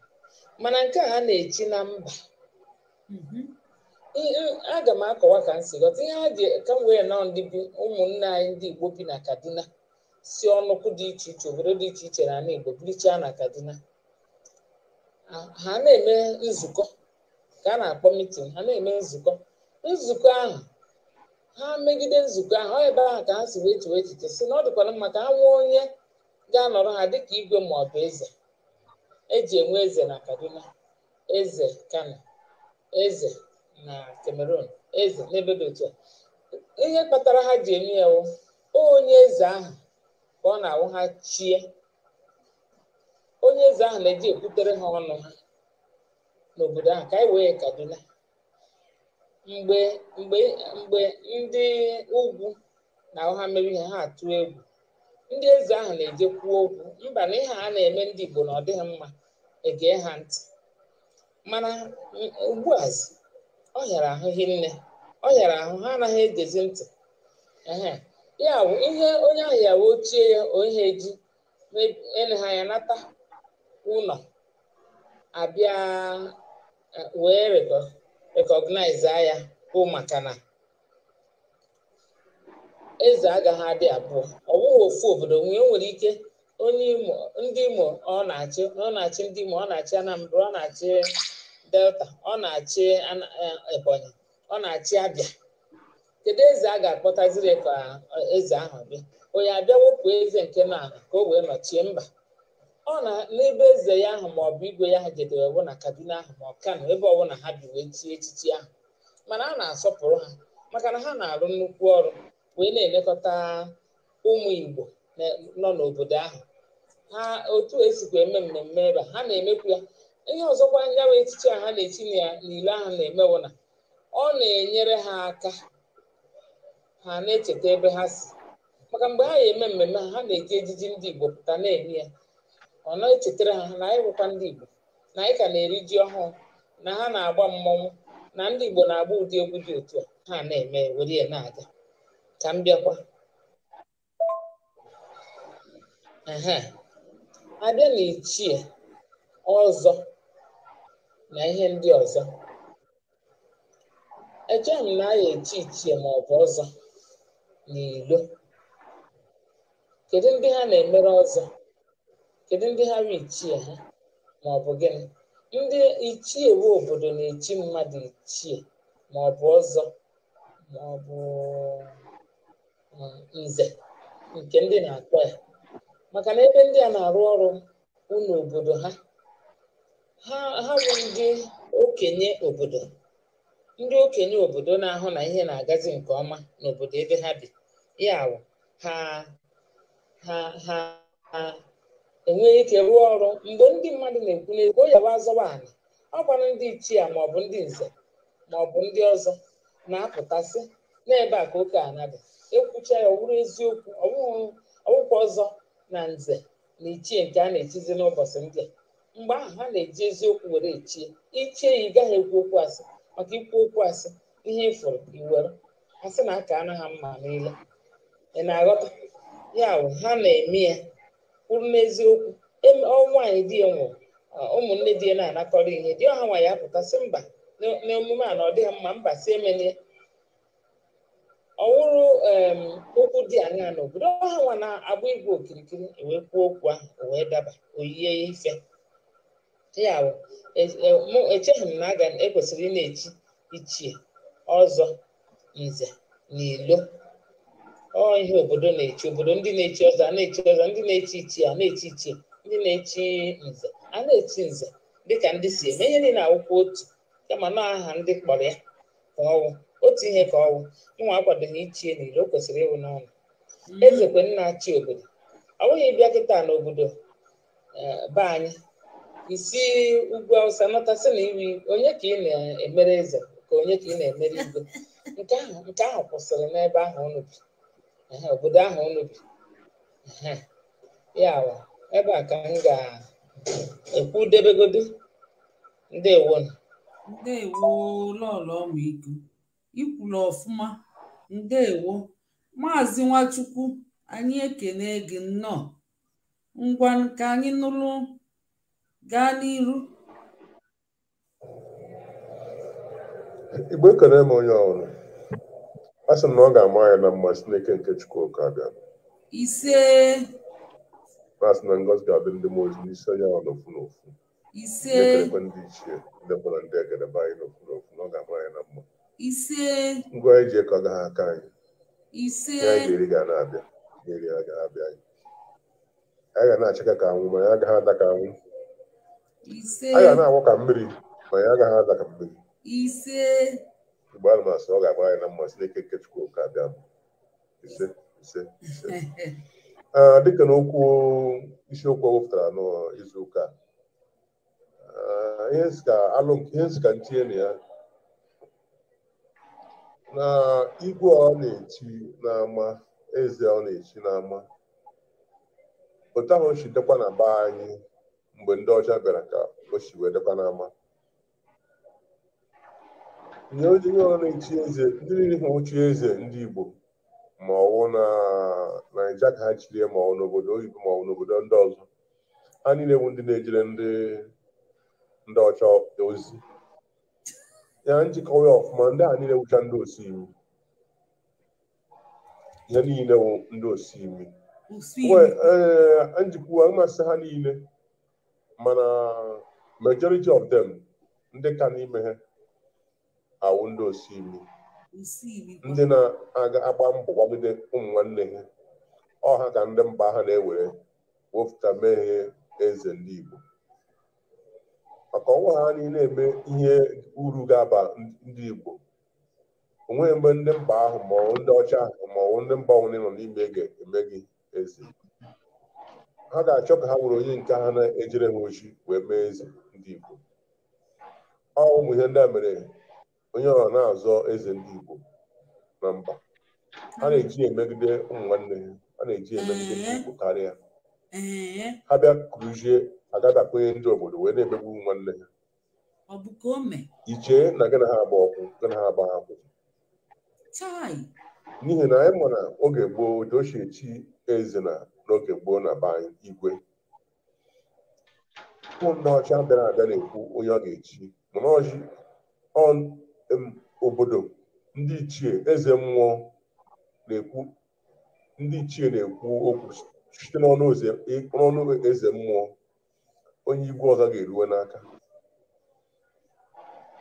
mana nke a na-echi na mba mhm. aga m akọwa ka m si ghọta ihe ha ji ka m wee nọọ ndị bi ụmụnne anyị ndị Igbo bi na Kaduna si ọnụkwụ dị iche iche obodo dị iche iche na ala Igbo birichaa na Kaduna ha na-eme nzukọ ka a na-akpọ mitin ha na-eme nzukọ nzukọ ahụ ha megide nzukọ ahụ ọ ebe ahụ ka ha si wee chewe echiche si na ọ dịkwara mma ka ha nwee onye ga-anọrọ ha dịka igwe ma ọ bụ eze eji enwe eze na Kaduna eze Kano eze na Cameroon eze n'ebe dị otu a ihe kpatara ha ji eme ya onye eze ahụ ka ọ na-awụ ha chie onye eze ahụ na-eji ekwutere ha ọnụ ha n'obodo ahụ ka anyị wee Kaduna mgbe ndị ugwu na ahụ ha ihe ha atụ egwu ndị eze ahụ na-eje kwuo okwu mba na ihe a na-eme ndị Igbo na ọ dịghị mma egee ha ntị mana a ọ hịara ahụ hinne ọ hịara ahụ ha anaghị egezi ntị ya ihe onye ahụ ya ochie ya ihe eji ha ya nata ụlọ abịa e, wee rekọgnaiza ya bụ maka na eze agaghị adị abụọ ofu obodo nwee nwere ike onye imo ndị imo ọ na-achị ọ na-achị ndị imo ọ na-achị anambra ọ na-achị delta ọ na-achị eh, ebonyi ọ na-achị abịa kedu eze a ga-akpọtaziri ka eh, eze ahụ bịa onye abịa wepụ eze nke naala ka o wee nọchie mba ọ na n'ebe eze ya ahụ ma ọ bụ igwe ya ha jedere ọbụ na kaduna ahụ ma ọ kano ebe ọbụla ha bi wee chie echichi ahụ mana a na-asọpụrụ ha maka na ha na-arụ nnukwu ọrụ wee na-elekọta ụmụ Igbo nọ n'obodo ahụ ha otu esikwa eme mmemme ebe ha na-emekwu ya ihe ọzọkwa nyawa bụ echiche a ha na echi na ya n'ile ahụ na-emewo na ọ na-enyere ha aka ha na-echeta ebe ha si maka mgbe ha ga-eme mmemme ha na-eji ejiji ndị Igbo pụta na-eme ya ọ na-echetara ha na anyị bụkwa ndị Igbo na anyị ka na-eri ji ọhụụ na ha na-agba mmọnwụ na ndị Igbo na-agba ụdị egwu dị otu a ha na-eme were ya na-aga ka m bịakwa abịa na ichie ọzọ na ihe ndị ọzọ echeghị m na a ya echi ichie ma ọ bụ ọzọ n'ilo kedu ndị ha na-emere ọzọ kedu ndị ha bụ ichie ha ma ọ bụ gịnị ndị ichie we obodo na-echi mmadụ ichie ma ọ bụ ọzọ ma ọ bụ um, nze nke ndị na-akpọ ya maka na ebe ndị a na-arụ ọrụ ụlọ obodo ha ha bụ ndị okenye obodo ndị okenye obodo na-ahụ na ihe na-agazi nke ọma n'obodo ebe ha bi ya awụ ha ha ha enweghị ike rụọ ọrụ mgbe ndị mmadụ na-ekwu n'ezigbo yawa azọwa ala ọ gwara ndị ichie maọbụ ndị nze maọbụ ndị ọzọ na-apụtasị n'ebe a ka oke ana dị ekwucha ya ọ bụrụ eziokwu ọwụkwa ọzọ na nze na ichie nke a na-echizi n'ụbọchị ndị a mgbe ahụ ha na-eji eziokwu were echie ichie ya ị gaghị ekwu okwu asị maka ikwu okwu asị ihe ịfụrụ iwere asị na aka anụ ha mma niile ị na-aghọta ya wụ ha na-eme ya kwuru n'eziokwu e, anyị di ya nwụrụ ụmụnne di ya na-anakọrọ ihe di ọha ya pụta sị mba n'emume a na ọ dịghị mma mba si emelie ọwụrụ okwu dị anya n'obodo ha nwa na-agba igwe okirikiri e wee kwuo okwu ahụ e wee daba oyie ife ya bụ e, echeghị m na aga ekwesịrị ị na-echi ichie ọzọ nze na ilo ọ ihe obodo na-echi obodo ndị na-echi ọzọ a na-echi ọzọ ndị na-echi ichie a na-echi ichie ndị na-echi nze a na-echi nze dịka ndị si eme ihe niile awụkwa otu kama na aha ndị kpọrọ ya ka ọnwụ otu ihe ka ọwụ nwa akwadoghị ichie n'iro o kwesịrị ịwụ n'ọnụ mm-hmm. ezekwe nna chi obodo ọ bụghị ịbịa kịta n'obodo e, be anyị isi ugwu awụsa nọtasị na iwi onye ka ị na-emere eze ka onye ka ị na-emere igwe nke ahụ nke ahụ kwụsịrị n'ebe ahụ unu bi obodo ahụ unu bi ya ebe a ka m ga-ekwu Ndị ndewo ndewo lọlọ ọmụ iku ikwulu ọfụma ndeewo maazị nwachukwu anyị ekene gị nnọọ ngwa ka anyị nụrụ gaa n'iru igbo ekene m onye ọhụrụ a sị m na ọ ga-ama ya na mma n'eke nke Chukwu oke abịa ise asị na ngozi ga-adị ndị mmụọ ozi n'isi onye ọrụ ofu na ise ndị ichie ndị mkpọrọ ndị egedebe anyị n'ofu na na ọ ga-ama ya na mma ise ngwa eji ekọga ha aka anyị ise iri ga na-abịa iri ha abịa anyị anyị ga achịka ka anwụ ma ya agaghị ada ka anwụ ise anyị ga na-agwọ ka mmiri ma ya agaghị ada ka mmiri ise mgbe a ọ ga-agba anyị na mmasị n'ike nke chukwu ka abịa ise ise ise dịka na okwu isiokwu wepụtara n'izu ụka ihe nzika ntinye na ya na igwe ọ na-eti n'ama eze ọ na-eti n'ama otu ahụ si dekwa na be anyị mgbe ndị ọcha bịara ka o si wee dekwa n'ama nye onye ọ na echi eze ndị niile ha ochi eze ndị Igbo ma ọwụ na naija ka ha chirie ma ọwụ n'obodo oyibo ma ọwụ n'obodo ndị ọzọ ha niile bụ ndị na-ejere ndị ọcha ozi ya njikọwa ya ọfụma ndị a niile wụcha ndị osi imi ya niile wụ ndị osi imi ee eh, njikwa mmasị ha niile mana majority of them ndị ka n'ime ha awụ ndị si imi ndị na-agba mbọ gbagide ụmụ nwanne ha ọha ka ndị mba ha na-ewere wepụta mehie eze n'Igbo. Igbo maka ọnwa ha niile eme ihe uru ga-aba ndị Igbo onweghị mgbe ndị mba ahụ maọbụ ndị ọcha ahụ maọbụ ndị mba ọbụla nọ n'ime ga-eme gị ezi ha ga-achọ ka ha nwere onye nke ha na-ejere ha ochi wee mee eze ndị Igbo ọ ụmụ ihe ndị a mere onye ọ na-azọ eze ndị Igbo na mba ha na-eji emegide ụmụ nwanne ha a na-eji emegide ndị Igbo karịa ha bịa kụrụzie agada akwanye ndị obodo wee na-emegbu nwanne ya ichee na gị na ha agba ọkụ gị na ha agba ha n'ihi na anyị ma na oge gboo joshie chi eze na n'oge gboo na Ban anyị igwe ụmụ ndị ọcha bịara abịa na-ekwu onye ọ ga-echi mana ọchị obodo ndị ichie eze mmụọ na-ekwu ndị ichie na-ekwu okwu site n'ọnụ eze mmụọ onye igwe ọha ga-eruwe n'aka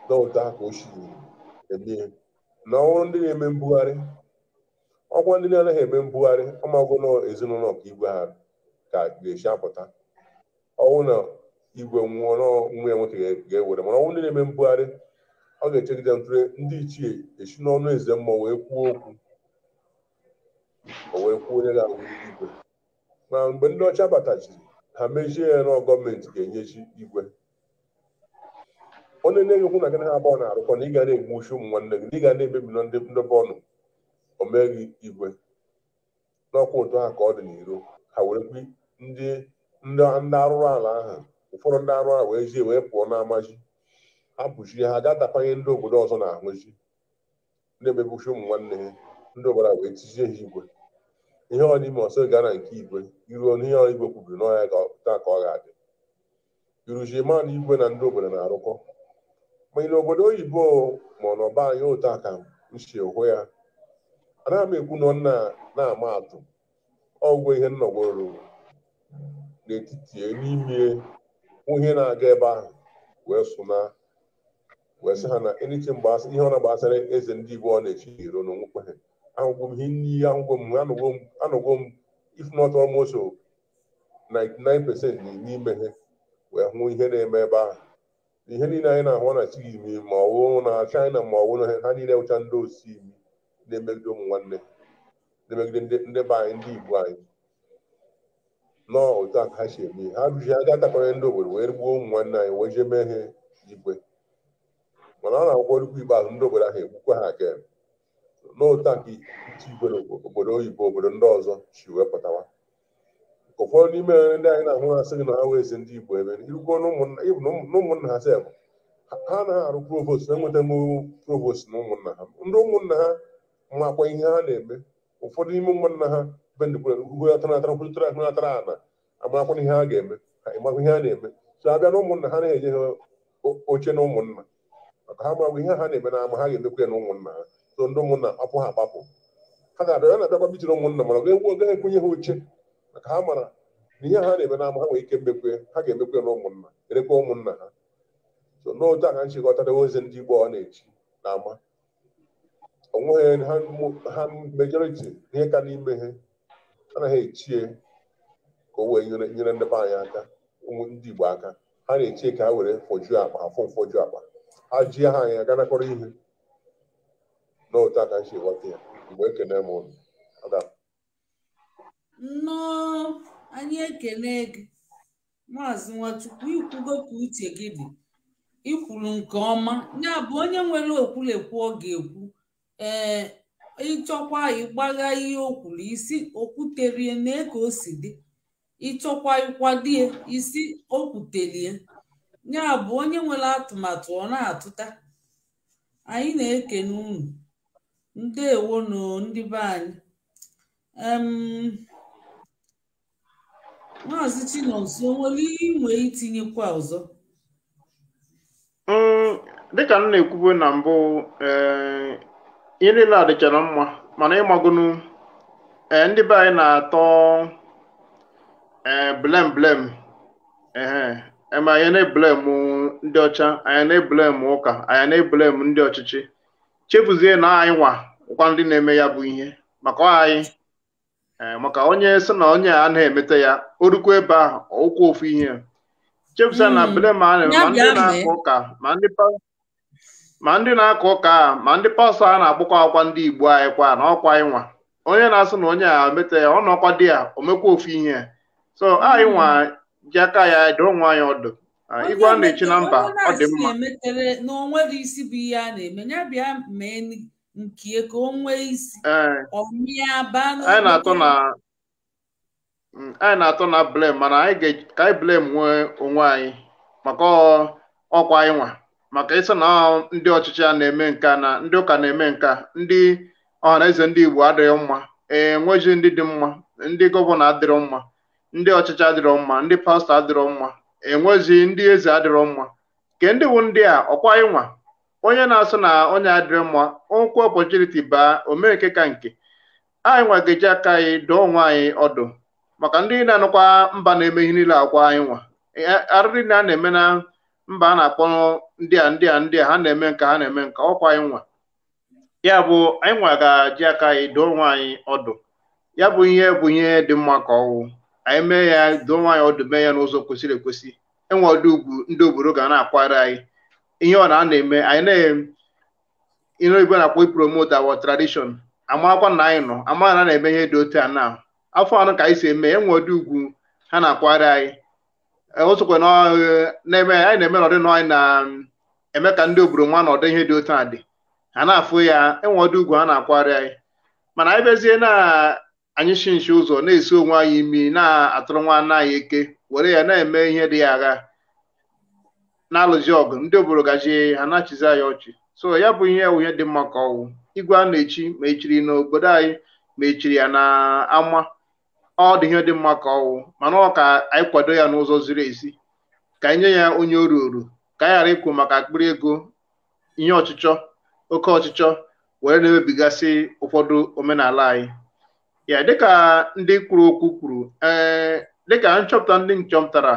n'ụta ka o si na ọrụ ndị na-eme mbugharị ọkwa ndị na-anaghị eme mbugharị na ezinụlọ ka igwe ha ka ga-esi apụta ọnwụ na igwe nwụọ nwa ya nwoke ga-ewere mana ọnwụ ndị na-eme mbugharị ọ ga-echegide ntụle ndị ichie esi n'ọnụ eze mmụọ wee kwuo okwu o wee kwuo onye ga-awụ igwe ma mgbe ndị ọcha batachiri ha mezie ya nọ gọọmenti ga-enyechi igwe onye na okwu na gị ha abụọ na-arụkọ na ị ga na-egbu uchu ụmụ nwanne gị na ị ga na-emebi na ndị ndobe ọnụ omeghị igwe n'ọkwa ụtọ ha ka ọ dị n'iro ha were kwi ndị ndị arụrụ ala ahụ ụfọdụ ndị arụ ala wee jie wee pụọ n'ama ji hapụchi ha ga tapanye ndị obodo ọzọ na-ahụ na ndị uchu ụmụ nwanne gị ndị obodo a wee tizie ha igwe ihe ọdịma ọsọ gara nke igwe iruo n'ihe igwe kwubiri n'ọhịa taa ka ọ ga-adị iruzie igwe na ndị obodo na-arụkọ ma ị na obodo oyibo ma ọ na ọba anyị ụta ka nsi hụ ya anaghị m ekwu nọ na-ama atụ ọgwụ ihe nnọgworo n'etiti n'ime ihe na-aga ebe ahụ wee sụna wee sị ha na mgbe ihe ọ na-agbasara eze ndị igbo ọ na-echi iro na onwekwe ha ahụgwo m ihe n'iyi ahụgwo m anọgwo m 99% n'ime ihe wee hụ ihe na-eme ebe ahụ ihe niile anyị na-ahụ na chigimi ma ọ wụ na China ma ọ wụ na ha niile wụcha ndị osi imi na-emegide ụmụ nwanne na-emegide ndị be anyị ndị Igbo anyị nọọ otu aka ha si eme ha rụji er ha ga-adakọrọ ndị obodo wee gbuo ụmụ nwanne anyị wee jee mee ihe igwe mana ọ na-akwụkwọ orukwu ikpeazụ ndị obodo ahụ egbukwa ha aka n'ụta nke igwere obodo oyibo obodo ndị ọzọ si wee pụtawa ụfọdụ n'ime ndị anyị na-ahụ asị gị na ha wee ezi ndị igbo ebe irukwu n'ụmụnna ha sef ha anaghị arụ provost na-enweta provost na ụmụnna ha ndị ụmụnna ha makwa ihe ha na-eme ụfọdụ n'ime ụmụnna ha benatara kwụtara natara ana amarakwa ihe ha ga-eme ịmakwa ihe ha na-eme so abịa na ụmụnna ha na-enye ha oche na ụmụnna maka ha marakwa ihe ha na-eme na ama ha ga-emekwa ya na ụmụnna ha so ndị ụmụnna akwụ ha agbapụ ha ga-abịa ya na-abịa ma ụmụnna mana ga-egwu ekwenye ha oche maka ha mara na ihe ha na-eme n'ama ha nwee ike mmekwe ha ga-emekwe na ụmụnna erekwa ụmụnna ha so n'otu a ka nchịkọtara ozi ndị Igbo ọ na-eji na ama onweghị ha mejọriti ihe ka n'ime ha anaghị echie ka o wee nyere ndị be anyị aka ụmụ ndị Igbo aka ha na-echie ka ha were fojuo akpa afụ mfoju akpa ha jie ha anya ga nakọrọ ihe n'otu aka nsi ya mgbe ekene m ụlọ nnọọ anyị ekene gị maazị nwachukwu ikwugo ka uche gị dị ikwuru nke ọma ya bụ onye nwere okwulekwu ọ ga-ekwu ee ịchọkwa ịgbagha ihe o kwuru isi okwuterie na eke o si dị ịchọkwa ịkwadie isi okwutelie ya bụ onye nwere atụmatụ ọ na-atụta anyị na-ekene unu ndewonu ndị be anyị maazị Chinonso nwere ihe inwe itinyekwa ọzọ mm, dịka m na-ekwubo na mbụ eh, ihe niile a dịchara mma mana ịmagonu eh, ndị be anyị na-atọ blem blem ma anyị na-eblem ndị ọcha anyị na-eblem ụka anyị na-eblem ndị ọchịchị chefuzie na anyị nwa ụkwa ndị na-eme ya bụ ihe maka anyị eh, maka onye sị na onye a na-emeta ya orukwa ebe ahụ ọụkwụ ofu ihe chefuzie na hmm. bele ma ndị na-akọ ụka ma ndị ndị na-akọ ụka ma ndị pastọ a na-agbakwa akwa ndị igbo anyị kwa na ọkwa anyị nwa onye na-asị na onye a emeta ya ọ na ọkwa di ya omekwa ofu ihe so anyị nwa ji aka ya doo nwa anyị ọdụ igwe a na-echi na mba ọ dị mma na onwere isi bụ ihe a na-eme ya bịa mee nke ka o nwee isi atụ na mm, anyị na-atụ na blem mana anyị ga-eji ka anyị blem nwee onwe anyị maka ọkwa anyị maka ịsị na ndị ọchịchị a na-eme nke na ndị ụka na-eme nke ndị ọhanaeze ndị Igbo adịghị mma ee enweghị ndị dị mma ndị gọvanọ adịrọ mma ndị ọchịchị adịrọ mma ndị pastọ adịrọ mma enwezi ndị eze adịrọ mma nke ndị wu ndị a ọkwa ịnwa onye na-asụ na onye adịrọ mma ụkwụ ọpọchuniti baa omee nke ka nke anyị nwa ga-eji aka anyị dụọ onwe anyị ọdụ maka ndị na-anụkwa mba na-eme ihe niile akwa anyị nwa e, arịrị na a na-eme na mba a na-akpọ ndị a ndị a ndị a ha na-eme nka ha na-eme nka ọkwa anyị nwa ya bụ anyị nwa ga-eji aka anyị dụọ onwe anyị ọdụ ya bụ ihe bụ ihe dị mma ka ọwụ anyị mee ya doo nwaanyị ọdụ mee ya n'ụzọ kwesịrị ekwesị enwe ọdụ ugwu ndị obodo ga na-akwara anyị ihe ọ na a na-eme anyị na-ere igwe na-akpọ ipromote our tradition amakwa na anyị nọ ama na na-eme ihe dị otu a na afọ anọ ka anyị si eme enwe ọdụ ugwu ha na-akwara anyị e, osokwe na-eme anyị na-eme n'ọdị nọ anyị na-eme ka ndị obodo nwa na ọdị ihe dị otu a dị ha na-afụ ya enwe ọdụ ugwu ha na-akwara anyị mana anyị bezie na anyị shi nshi ụzọ na-esi onwe anyị imi na-atụrụ nwa anyị eke were ya na-eme ihe dị ya agha na-alụzi ọgụ ndị obodo gaji ha na-achịzi anyị ọchị so ya bụ ihe ihe dị mma ka ọnwụ igwe a na-echi ma echiri n'obodo anyị ma echiri ya na ama ọ dị ihe dị mma ka ọwụ mana ọ ka anyị kwado ya n'ụzọ ziri ezi ka anyị nye ya onye oru oru ka anyị ghara ikwu maka akpịrị ego ihe ọchịchọ oke ọchịchọ were na-emebigasị ụfọdụ omenala anyị ya dịka ndị kwuru okwu kwuru eh, dịka nchọpụta ndị nchọpụtara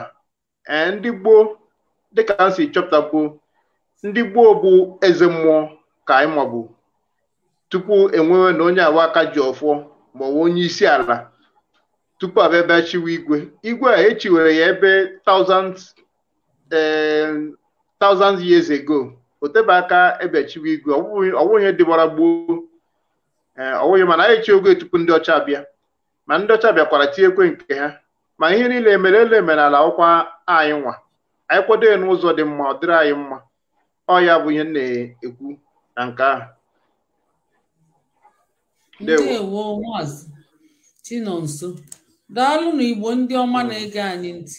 eh, ndị gboo dịka a si chọpụtagbuo ndị gboo bụ eze mmụọ ka anyị mabụ tupu enwewe na onye awa aka ji ọfọ ma ọ onye isi ala tupu abịa bịa chiwe igwe igwe a echiwere ya ebe thousands eh, thousands years ago o tebe aka ebe chiwe igwe ọ bụghị ihe dịbara gboo Eh, ọ wụghị mana anyị chi oge tupu ndị ọcha bịa ma ndị ọcha bịakwara tinyekwe nke ha ma ihe niile emere ele ala ọkwa anyị nwa anyị kwado ya n'ụzọ dị mma ọ dịrị anyị mma ọ ya bụ ihe na-ekwu na nke ahụ ndewo maazị Chinonso igbo ndị ọma na-ege anyị ntị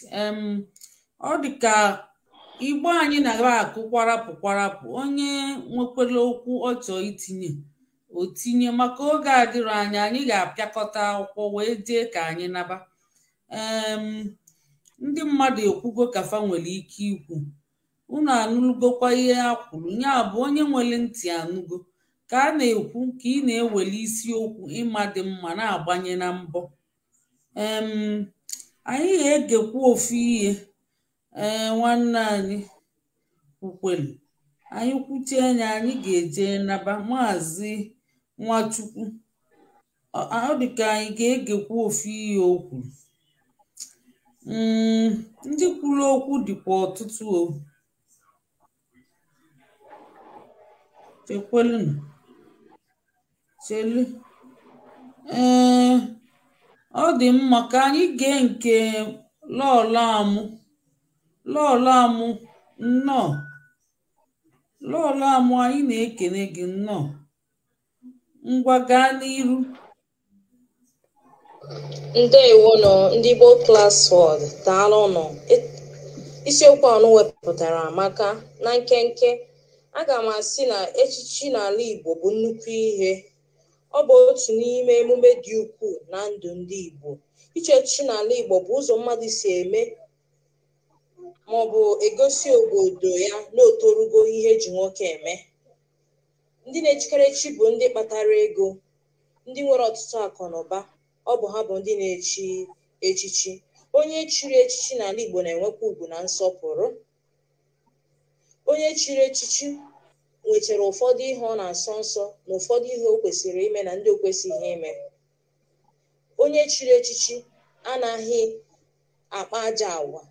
ọ dị ka igbo anyị na-aba akụ kwarapụ kwarapụ onye nwekwara okwu ọ chọọ itinye o tinye maka oge dịrị anya anyị ga-apịakọta akwụkwọ wee dee ka anyị naba ndị mmadụ ekwugo kafa nwere ike ikwu unu anụlụgokwa ihe a kwuru ya bụ onye nwere ntị anụgo ka a na-ekwu ka ị na-eweli isiokwu ịma dị mma na-agbanye na mbọ anyị ga-egekwu ofu ihe ee nwanne anyị kwukwelu anyị kwuchie anya anyị ga-eje naba maazị Nwachukwu. ọ ka anyị ga-egekwa ofu ihe o mm, ndị kwuru okwu dịkwa ọtụtụ o chelu ọ dị mma ka anyị gee nke lọlamụ lọlamụ nnọọ lọlamụ anyị na-ekene gị nnọọ ngwa gaa n'iru ndewonụ ndị Igbo Class nọ daalụnụ e, isiokwu anụ wepụtara maka na nkenke aga m asị na echichi n'ala Igbo bụ nnukwu ihe ọ bụ otu n'ime emume dị ukwuu na ndụ ndị Igbo iche echichi n'ala Igbo bụ ụzọ mmadụ si eme maọbụ egosi obodo ya na otorugo ihe eji nwoke eme ndị na-echikere chi bụ ndị kpatara ego ndị nwere ọtụtụ akụ na ụba ọ bụ ha bụ ndị na-echi echichi onye chiri echichi n'ala Igbo na-enwekwa ugwu na nsọpụrụ onye chiri echichi nwechara ụfọdụ ihe ọ na-asọ nsọ na ụfọdụ ihe o kwesịrị ime na ndị o kwesịghị ime onye chiri echichi anaghị akpa aja agwa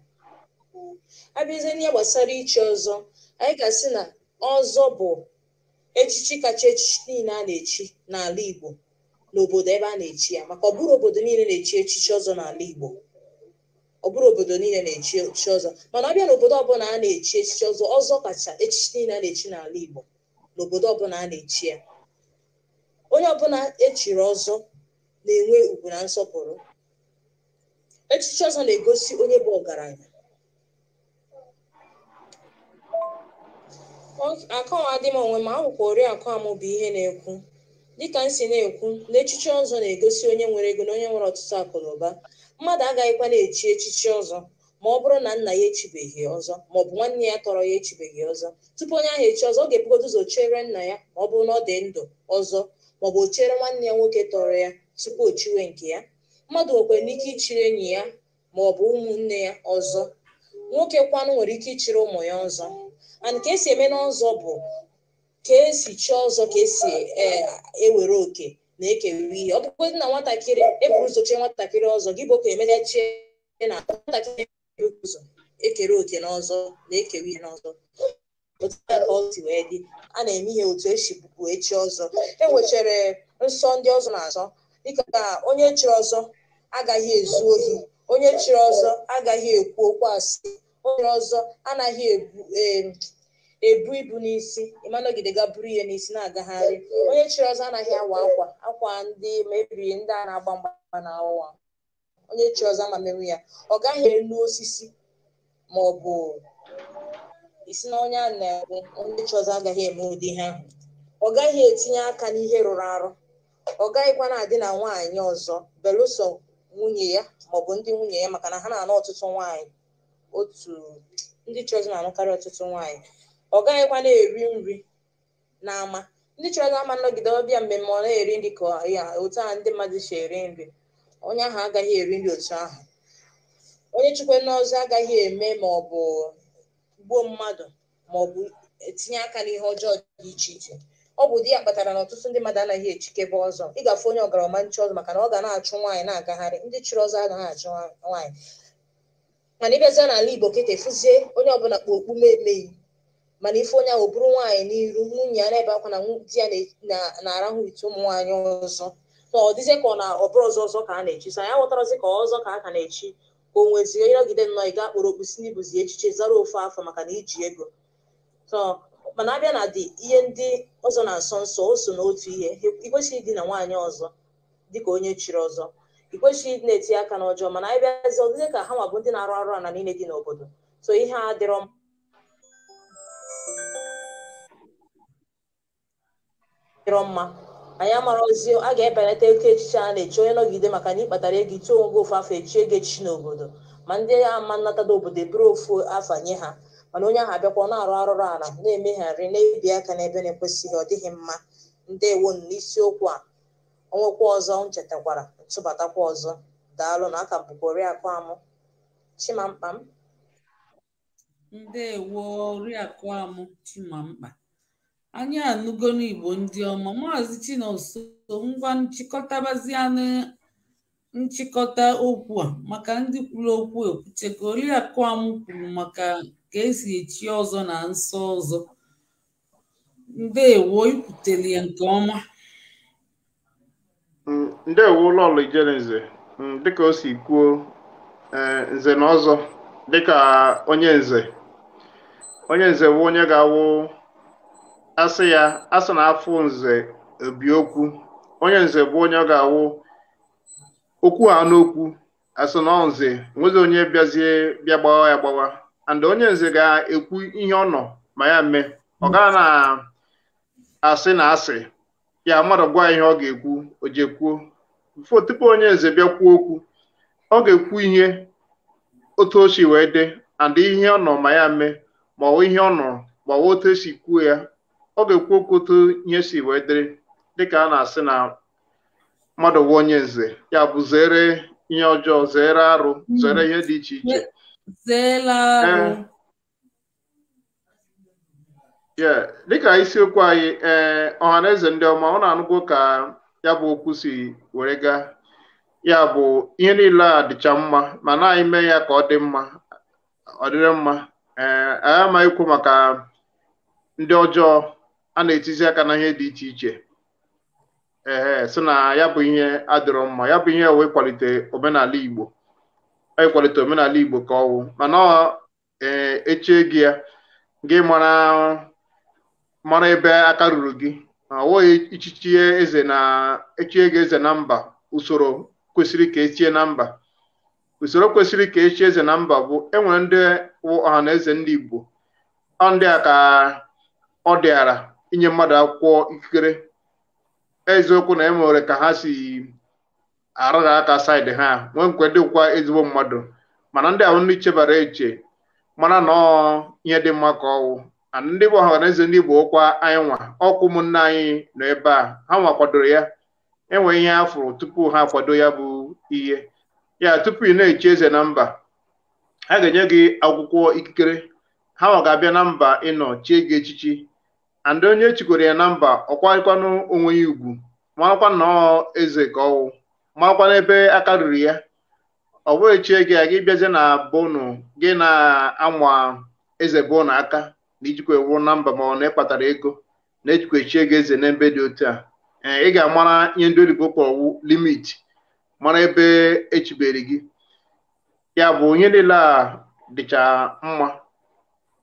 abịazie n'ihe gbasara ichi ọzọ anyị ga-asị na ọzọ bụ echichi kacha echichi niile a na-echi n'ala Igbo n'obodo ebe a na-echi ya maka ọ bụrụ obodo niile na-echi echichi ọzọ n'ala Igbo ọ bụrụ obodo niile na-echi echichi ọzọ mana ọ bịa n'obodo ọbụla a na-echi echichi ọzọ ọzọ kacha echichi niile a na-echi n'ala Igbo n'obodo ọbụla a na-echi ya onye ọbụla echiri ọzọ na-enwe ugwu na nsọpụrụ echichi ọzọ na-egosi onye bụ ọgaranya dị m onwe m akwụkwọ oriakụ amụ bụ ihe na-ekwu dịka m si na-ekwu na echichi ọzọ na-egosi onye nwere ego na onye nwere ọtụtụ akụ na ụba mmadụ agaghịkwa na-echi echichi ọzọ ma ọ bụrụ na nna ya echibeghị ọzọ ma ọ bụ nwanne ya tọrọ ya echibeghị ọzọ tupu onye ahụ echi ọzọ ọ ga-ebugodo ụzọ chere nna ya ma ọ bụrụ na ọ dị ndụ ọzọ ma ọ bụ chere nwanne ya nwoke tọrọ ya tupu o chiwe nke ya mmadụ nwekwara n'ike ichiri enyi ya ma ọ bụ ụmụnne ya ọzọ nwoke kwanụ nwere ike ichiri ụmụ ya ọzọ and ka esi eme n'ọzọ bụ ka esi chọọ ọzọ ka esi ewere e oke na ekerewe ihe ọ bụgodị na nwatakịrị eburu ụzọ chee nwatakịrị ọzọ gị bụ ka emeneche na nwatakịrị ụzọ ekere oke n'ọzọ na ekewe ihe n'ọzọ otu wee dị a na-eme ihe otu esi bụbu echi ọzọ e nwechara nsọ ndị ọzọ na-azọ dịka onye chiri ọzọ agaghị ezu ohi onye chiri ọzọ agaghị ekwu okwu asị onye ọzọ anaghị ebu ibu n'isi ịmanọgide ga buru ihe n'isi na-agagharị onye chiri ọzọ anaghị awa akwa akwa ndị mebiri ndị a na-agba mgba na awa onye chịrị ọzọ ama merụ ya ọ gaghị elu osisi ma ọ bụ isi na onye a na-ekwu onye ọzọ agaghị eme ụdị ihe ahụ ọ gaghị etinye aka n'ihe rụrụ arụ ọ gaghịkwa na-adị na nwaanyị ọzọ belụsọ nwunye ya maọbụ ndị nwunye ya maka na ha na anụ ọtụtụ nwaanyị otu ndị chọọchị na-anụkarị ọtụtụ nwaanyị ọ gaghịkwa na-eri nri n'ama ndị chọọchị ama nnọgide ọbịa mmemme ọ na-eri nri ka ya otu a ndị mmadụ si eri nri onye ahụ agaghị eri nri otu ahụ onye chukwu n'ọzọ agaghị eme ma ọ bụ gbuo mmadụ ma ọ bụ etinye aka n'ihe ọjọọ dị iche iche ọ bụ di ya kpatara na ọtụtụ ndị mmadụ anaghị echikebe ọzọ ịgafe onye ọgarama nche ọzọ maka na ọ ga na-achụ nwaanyị na-agagharị ndị chịrị ọzọ agaghị achụ nwaanyị mana ịbịazie n'ala igbo kịta e efuzie onye ọbụla kpa okpu emeghị mana ife onye ahụ bụrụ nwaanyị n'iru nwunye ya na-ebe akwa na di ya na-arahụ ite ụmụ nwaanyị ọzọ na ọ dịzie ka ọ na ọbụrụ ọzọ ọzọ ka a na-echi so anyị aghọtarazi ka ọzọ ka a ka na-echi ka o nwezie onye nọgide nnọọ ị ga-akpọrọ okpu si n'ibuzi echiche zara ofe afọ maka na iji ego mana abịa na dị ihe ndị ọzọ na nsọ nsọ o so n'otu ihe ikwesịghị ịdị na nwaanyị ọzọ dịka onye chiri ọzọ i kwesịghị na-etinye aka n'ọjọọ mana anyị bịazi ọdịdị ka ha nwa bụ ndị na-arụ arụ ala niile dị n'obodo so ihe a dịrọ m dịrọ mma anyị amarozi a ga-ebelata eke echiche a na-echi onye nọgide maka na ịkpatara ego ituo onwe gị ofu afọ echi ego echichi n'obodo ma ndị ama nnatada obodo eburu ofu afọ nye ha mana onye ahụ abịakwa na-arụ arụrụ ala na-emegharị na-ebi aka n'ebe na-ekwesịghị ọ dịghị mma ndewo n'isiokwu a ọnwekwa ọzọ m chetakwara ntụbatakwa ọzọ daalụ na aka bụ oriakụ amụ chimamkpa m ndewo oriakụ amụ chimamkpa anyị anụgo n'igbo ndị ọma maazị chinoso ngwa nchịkọtabazianụ nchịkọta okwu a maka ndị kwuru okwu okwuchekwa e oriakụ amụ kwuru maka ka esi echi ọzọ na nsọ ọzọ ndewo ikwutere ya nke ọma Mm, ndewo ụlọ ụlọ mm, dịka o si kwuo eh, nze na ọzọ dịka onye nze onye nze bụ onye ga-awụ asị ya asị na afọ nze obi okwu onye nze bụ onye ga-awụ okwu ha n'okwu asị na nze nwezi onye bịazie bịa gbawa ya gbawa and onye nze ga-ekwu ihe ọ ma ya mee ọ gaa na asị na asị ya mmadụ gwa ihe ọ ga-ekwu o jekwuo tupu onye eze bịa kwuo okwu ọ ga-ekwu ihe otu o si wee dị and ihe ọ nọ ma ya mee ma ihe ọ nọrọ ma ọ otu esi kwuo ya ọ ga-ekwu okwu otu ihe si wee dịrị dịka a na-asị na mmadụ wee onye nze ya bụ zere ihe ọjọọ zere arụ zere ihe dị iche iche dịka isiokwu anyị ee eh, ọha na eze ndị ọma ọ na-anụgo ka ya bụ okwu si were gaa ya bụ ihe niile a dịcha mma ma na-anyị mee ya ka ọ dị mma ọ dịrị mma ee eh, anyị amaghị ikwu maka ndị ọjọọ a na-etizi aka na ihe dị iche iche ee eh, sị na ya bụ ihe adịrọ mma ya bụ ihe wee kwalite omenala Igbo kwalite omenala Igbo ka ọwụ mana ọ ee echie gị ya gị mara mara ebe aka ruru gị awụghị ichichie eze na echie gị eze na mba usoro kwesịrị ka echie na mba usoro kwesịrị ka echie eze na mba bụ enwere ndị ọha na eze ndị Igbo ndị a ka ọ dịara inye mmadụ akwụkwọ ikikere eziokwu na enwere ka ha si arara aka saịdị ha nwee dịkwa ezigbo mmadụ mana ndị ahụ ndị chebara eche mana nọọ ihe dị mma ka ọwụ ndị bụ ọhaneze ndị Igbo ụkwa anyị nwa ọkwụ ụmụnne anyị nọ ebe a ha nwa kwadoro ya enwe ihe ha tupu ha akwado ya bụ ihe ya tupu ị na-echi eze na mba ha ga-enye gị akwụkwọ ikikere ha nwa ga-abịa na mba ịnọ chie gị echichi andị onye echikọrọ ya na mba ọkwakwanụ onwe ya ugwu marakwa nnọọ eze ka ọwụ marakwa n'ebe aka ruru ya ọ bụghị chie gị a gị bịazie na bonu gị na-anwa eze bụ aka na ijikwa ewu na mba ma ọ na ịkpatara ego na-ejikwa echi ego eze na ebe dị otu a ị ga-amara ihe ndị oyibo kpọwụ limit mara ebe echibere gị ya bụ onye niile a dịcha mma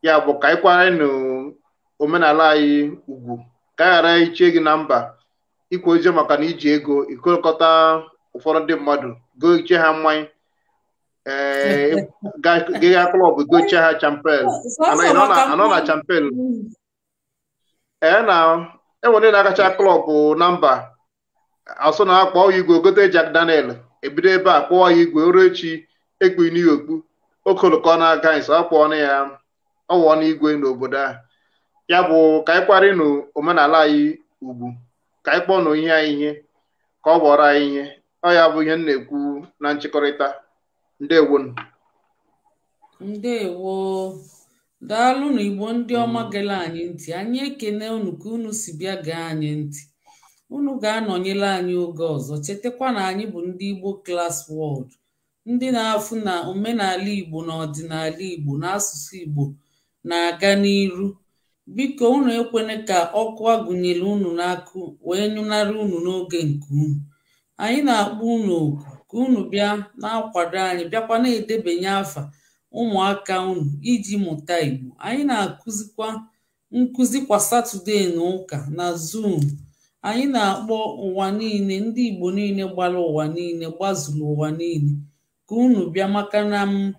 ya bụ ka anyị kwara n'omenala anyị ugwu ka a ghara ichie gị na mba ikwu ozi maka na iji ego ikokọta ụfọdụ ndị mmadụ goo iche ha mmanya Giga klọb gochie ha champen anọ na champen ah, ee na enwere ndị na-akacha klọb na mba asụ na akpọ ya igwe gote e Jack Daniel ebido ebe e a kpọọ ya igwe ruo echi ekpu okpu okoloko na aga nsọ akpọọ na ya ọwụọ na igwe n'obodo a ya bụ ka anyị e kparị omenala anyị ugwu ka anyị kpọ na ihe anyị ihe ka ọ bụọrọ anyị ihe ọ ya bụ ihe nna na-ekwu na nchịkọrịta ndewonu ndewo daalụnụ igbo ndị ọma gele anyị ntị anyị ekene unu ka unu si bịa gee anyị ntị unu ga-anọnyere anyị oge ọzọ chetakwa na anyị bụ ndị igbo klas wọld ndị na-afụ na omenala igbo na ọdịnala igbo na asụsụ igbo na-aga n'iru biko unu ekwene ka ọkụ agụnyere unu n'akụ wee nyụnara unu n'oge nke unu anyị na-akpọ unu oku ka unu bịa na-akwado anyị bịakwa na-edebanye afa ụmụaka unu iji mụta Igbo. Anyị na-akụzikwa nkụzi kwa Satọde na ụka na Zoom. Anyị na-akpọ ụwa niile ndị Igbo niile gbara ụwa niile gbazuru ụwa niile ka unu bịa maka na m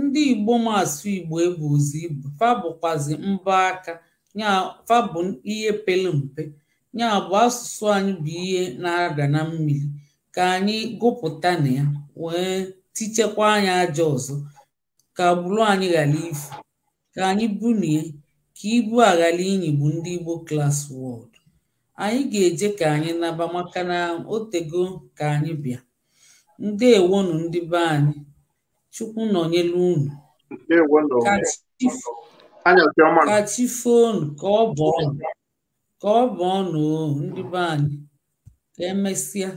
ndị Igbo ma asụ Igbo ebu ibu Igbo fa bụkwazi mbọ aka ya fa bụ ihe pere mpe ya bụ asụsụ anyị bụ ihe na-ada na mmiri ka anyị gụpụta na ya wee tichekwa anyị aja ọzọ ka gburu anyị ghara ifu ka anyị bunie ka ibu a ghara inyigbu ndị Igbo klas wọd anyị ga-eje ka anyị naba maka na otego ka anyị bịa ndewonu ndị be anyị chukwu nọnyelu unu ka ọnụ ka ọ bụ ọnụ ndị be anyị ka emesịa